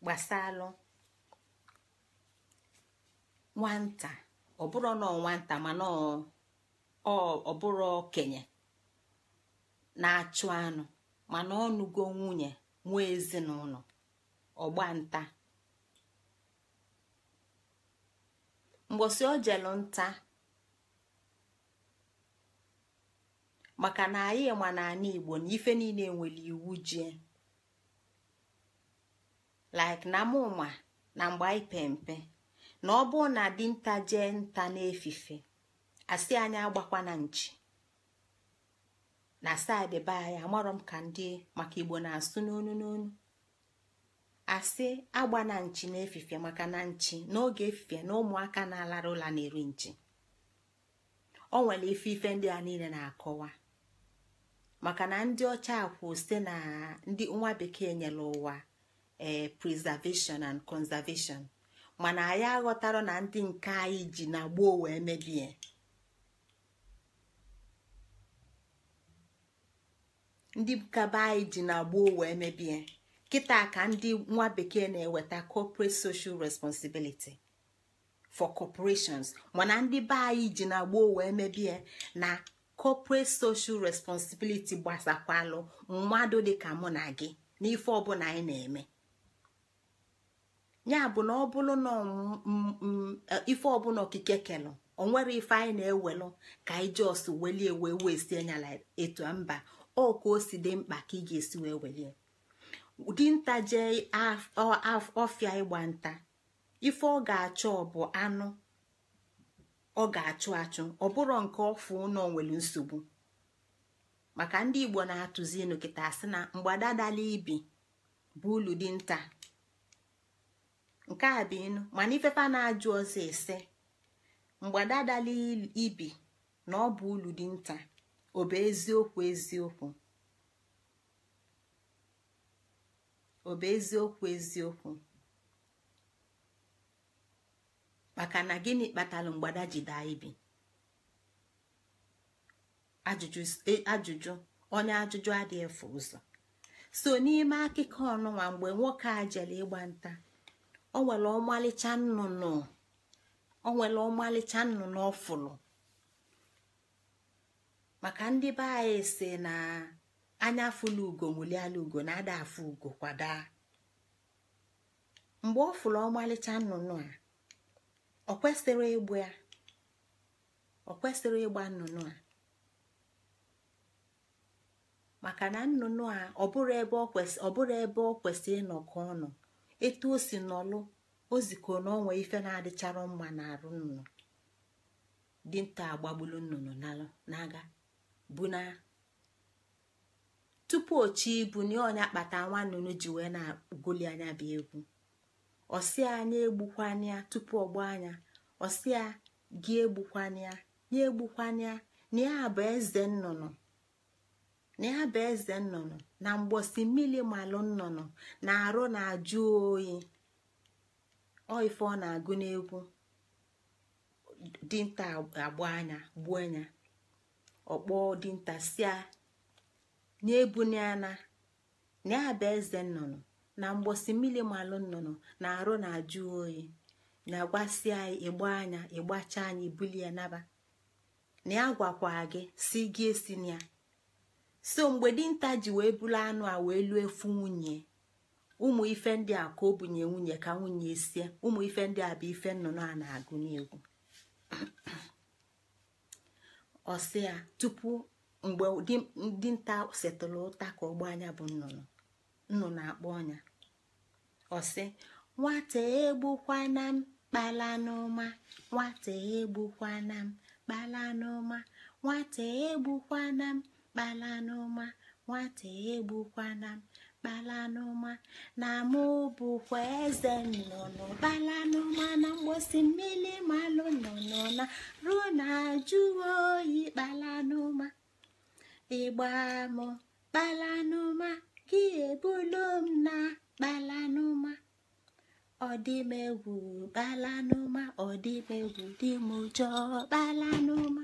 gbasalụ nwata ọ bụrụ na nwata mana ọ bụrụ okenye na-achụ anụ mana ọnụgo nwunye nwa ezinụlọ ọgbanta mgbọsị o nta maka na anyị ma na igbo na ife niile nwere iwu jie like na mụma na mgbe anyị pe na ọ bụrụ na dinta jee nta n'efife asị anyị agbakwa na nchi na saịdị be anyị amarọ m ka ndị maka igbo na-asụ n'onu n'onu asị agba na nchi n'efife maka na nchi n'oge efife na ụmụaka na-alara ụla na-eri nchi ọ nwere ife ife ndị a niile na-akọwa maka na ndị ọcha akwụ site na ndị nwa bekee nyere ụwa ee eh, preservation and conservation mana anyị aghọtara na ndị nke anyị ji na gboo wee mebie ndị kaba anyị ji na gboo wee mebie kịta ka ndị nwa bekee na-eweta corporate social responsibility for corporations mana ndị be anyị ji na gboo wee mebie na corporate social responsibility gbasakwalụ mmadụ dị ka mụ na gị n'ife ọbụla anyị na-eme ya bụ na ọ bụrụ na e, ife ọbụla okike kelụ onwere ife anyị na-ewelụ ka anyị jos welie wee wee sie nyala etu mba ọ o si dị mkpa ka ị ga-esi wee welie dinta jee ọfịa ịgba nta ife ọ ga-achọ bụ anụ ọ ga-achụ achụ ọ bụrụ nke ọfụ na onwere nsogbu maka ndị igbo na-atụzi elu kịta asị na mgbadadala ibi bụ ulu dinta nke a bụ inu mana ifefa na-ajụ ọzọ ise mgbada adala ibi na ọ bụ ulu dị nta ọ bụ eziokwu eziokwu maka na gịnị kpatara mgbada ji daa ibi ajụjụ e, onye ajụjụ adịghị efu ụzọ so n'ime akụkọ ọnụnwa mgbe nwoke a jere ịgba nta Ọ nwere ọmalịcha nnụnụ ọ nnụnụ ọfụlụ maka ndị be anyị si na anya afụla ugo nwụliala ugo na-ada afụ ugo kwada mgbe ọ fụrụ ọmalịcha nnụnụ a ọ kwesịrị ịgba nnụnụ a maka na nnụnụ a ọ bụrụ ebe ọ kwesịrị ịnọkọ ọnụ. etu o si nọlụ o ziko na onwe ife na-adịchara mma na arụ nnụnụ dinta agbagbulu nnụnụ n'aga bụ na tupu ochi ibu na ọnya kpata nwa nnụnụ ji wee na-agụli anya bụ egwu ọsịa anya egbukwania tupu ọgba anya ọsịa gị egbukwanya ya egbukwanya na bụ eze nnụnụ na bụ eze nnụnụ na mgbosi mmiri malụ nnụnụ na-arụ na-ajụ oyi ọ ife ọ na-agụ n'egwu dinta agba anya gbuo anya ọkpọ dinta sia na-ebunana na ya bụ eze nnụnụ na mgbosi mmiri malụ nnụnụ na-arụ na-ajụ oyi na-agwasịa ịgba anya ịgbacha anya ibulie naba na ya gwakwa gị si gị esi na ya so mgbe dinta ji wee bụrụ anụ a wee lụọ efu nwunye ụmụ ife ndị a ka o bunye nwunye ka nwunye sie ụmụ ife ndị a bụ ife nnụnụ a na-agụ n'egwu ọsịa tupu mgbe dinta setụrụ ụta ka ọgba anya bụ nnụnụ nnụnụ akpọ ọnya ọsị nwata egbukwana m kpalanụma nwata egbukwana m kpalanụma nwata na m kpala n'ụma nwata egbukwana m kpala n'ụma na mụ bụkwa eze nnụnụ kpala n'ụma na mgbosi mmiri malụ nnụnụ na ruo na jụọ oyi kpala n'ụma ịgba m kpala n'ụma gị ebulo m na kpala n'ụma ọdịmegwu kpala n'ụma ọdịmegwu dị m ụjọ kpala n'ụma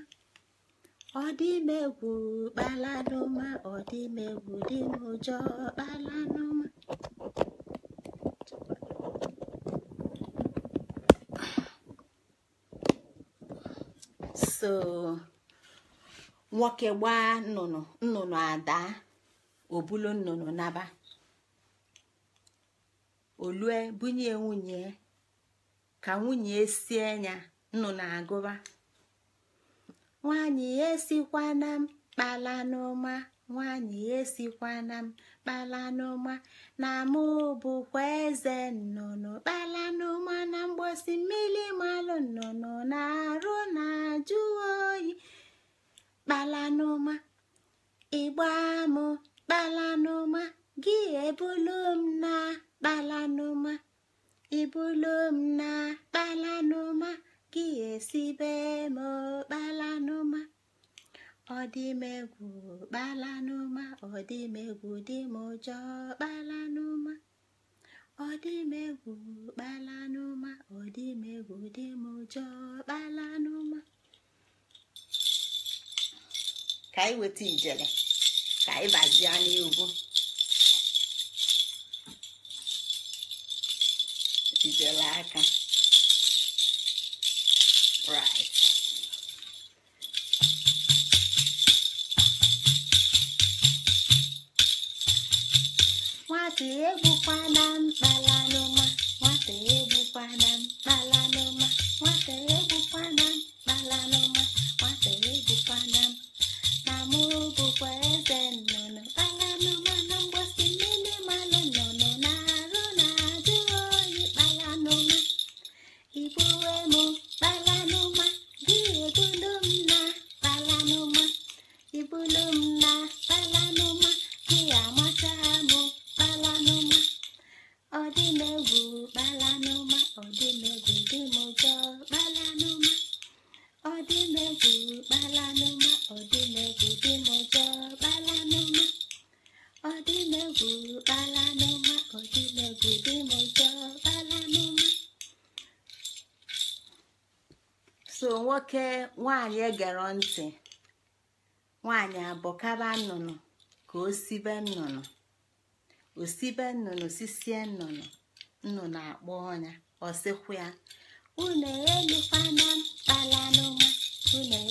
Ọ dị ọdịmegwu kpalanụma ọdịmegwu dị n'ụjọ kpalanụma so nwoke gbaa nnụnụ nnụnụ ada obulu nnụnụ naba olue bunye nwunye ka nwunye sie nya nnụnụ agụba nwanyị esikwana m kpala n'ụma nwaanyị esikwana m kpala n'ụma na mụ bụkwa eze nnụnụ kpala n'ụma na mgbosi mmiri malụ nnụnụ na-arụ na ajụ oyi kpala n'ụma ịgba m kpala n'ụma gị ebulu m na kpala n'ụma ibulu m na kpala n'ụma kiyesibe m kpalanụma ọdịmegwu kpalanụma ọdịmegwu dị m ụjọ kpalanụma ọdịmegwu kpalanụma ọdịmegwu dị m ụjọ kpalanụma ka anyị weta ijele ka anyị bazie n'egwu ijele nwata egbukwana mkpalanụma nwata egbukwana nwata nwaanyị egere ntị abụọ abọkaba nnụnụ ka o sibe nnụnụ osibe nnụnụ sisie nnụnụ nnụnụ akpọ ọnya ọsịkwụ ya unu elukwana mkpalanụma unu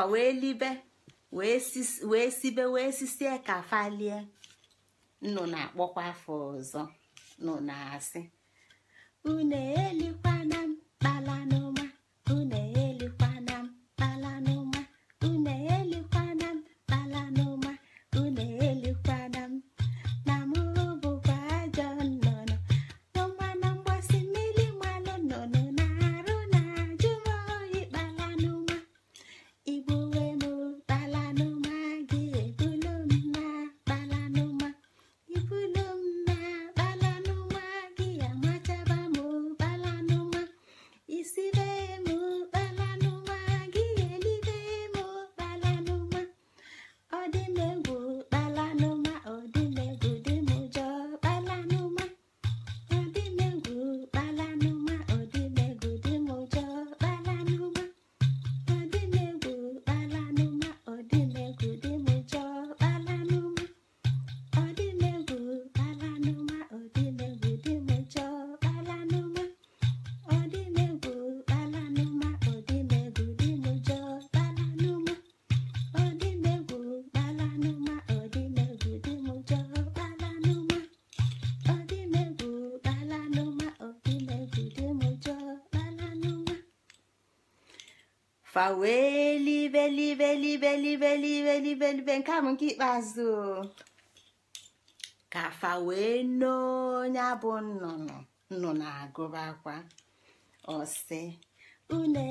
fa wee libe wee sibe wee sisie ka falie nnụ na-akpọkwa afọ ọzọ nụ na-asị unu elikwana fa wee libe libe libe libe libe libe nke a nke ikpeazụ ka fa wee n'onye bụ nnụnụ nnụnụ agụba akwa ọsị une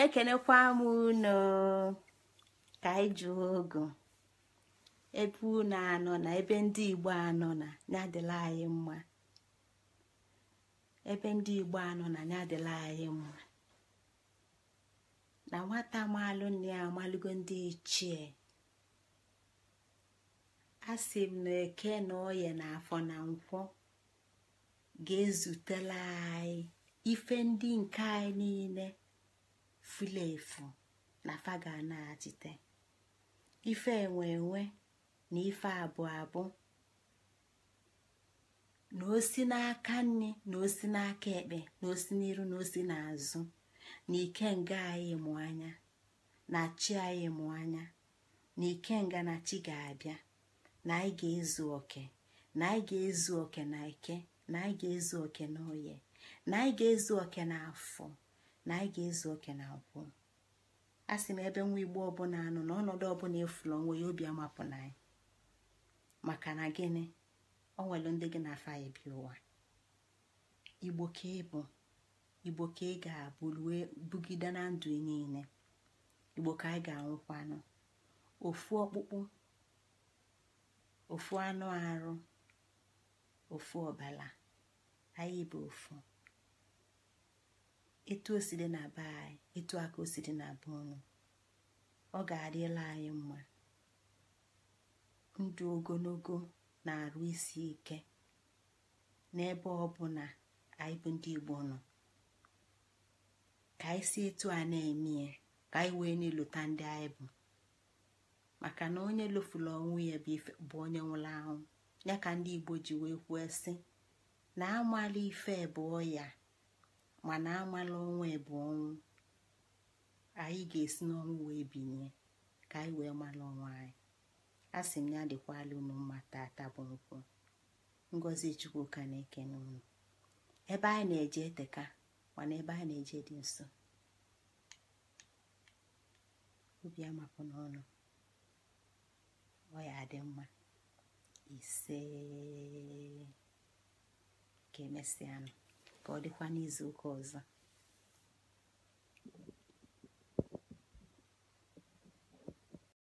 wee kenekwa m unu ka anyị jụọ ogo ebe unu anọ na ebe ndị igbo anọ na ya dịla anyị mma ebe ndị igbo anọ na ya dịla anyị mma na nwata maalụ nne ya amalụgo ndị ichie a sị m na eke na oye na afọ na nkwọ ga-ezutela anyị ife ndị nke anyị niile fula efu na faga na-achite ife enwe enwe na ife abụọ abụ na osi n'aka nni na osi n'aka ekpe na osi n'iru na osi n'azụ na ike nga anyị anya na chi anyị mụ anya na ike nga na chi ga-abịa na anyị ga-ezu oke na anyị ezu oke na ike na anyị ga-ezu oke na oye na anyị ga-ezu oke na afọ na anyị ga-ezu oke na abụọ a sị m ebe nwa igbo ọbụla anụ na ọnọdụ ọbụla efula onwe ya obi amapụ na anyị maka na gịnị ọ nwere ndị gị na afa bi ụwa igbo ka ịbụ igbo ka ị ga-abụ rue bugide na ndụ niile igbo ka anyị ga-anwụkwanụ ofu ọkpụkpụ ofu anụ arụ ofu ọbala anyị bụ ofu etu o si dị na be anyị etu aka o si dị na be unu ọ ga-adịla anyị mma ndụ ogologo na-arụ isi ike n'ebe ọ bụ na anyị bụ ndị Igbo nọ ka anyị si etu a na-eme ya ka anyị wee na-elota ndị anyị bụ maka na onye lofuru ọnwụ ya bụ onye nwụrụ anwụ ya ka ndị Igbo ji wee kwuo sị na amala ife bụ ọya mana amala ọnwa bụ ọnwụ anyị ga-esi n'ọnwụ wee binye ka anyị wee mala ọnwa anyị a sị m ya dịkwala unu mma tata bụ ngozi chukwu ka na-eke n'ụlọ ebe anyị na-eje eteka mana ebe anyị na-eje dị nso obi amapụ n'ọnụ ọya ya dị mma ise ka emesịanụ ọ dịkwa n'izu ụka ọzọ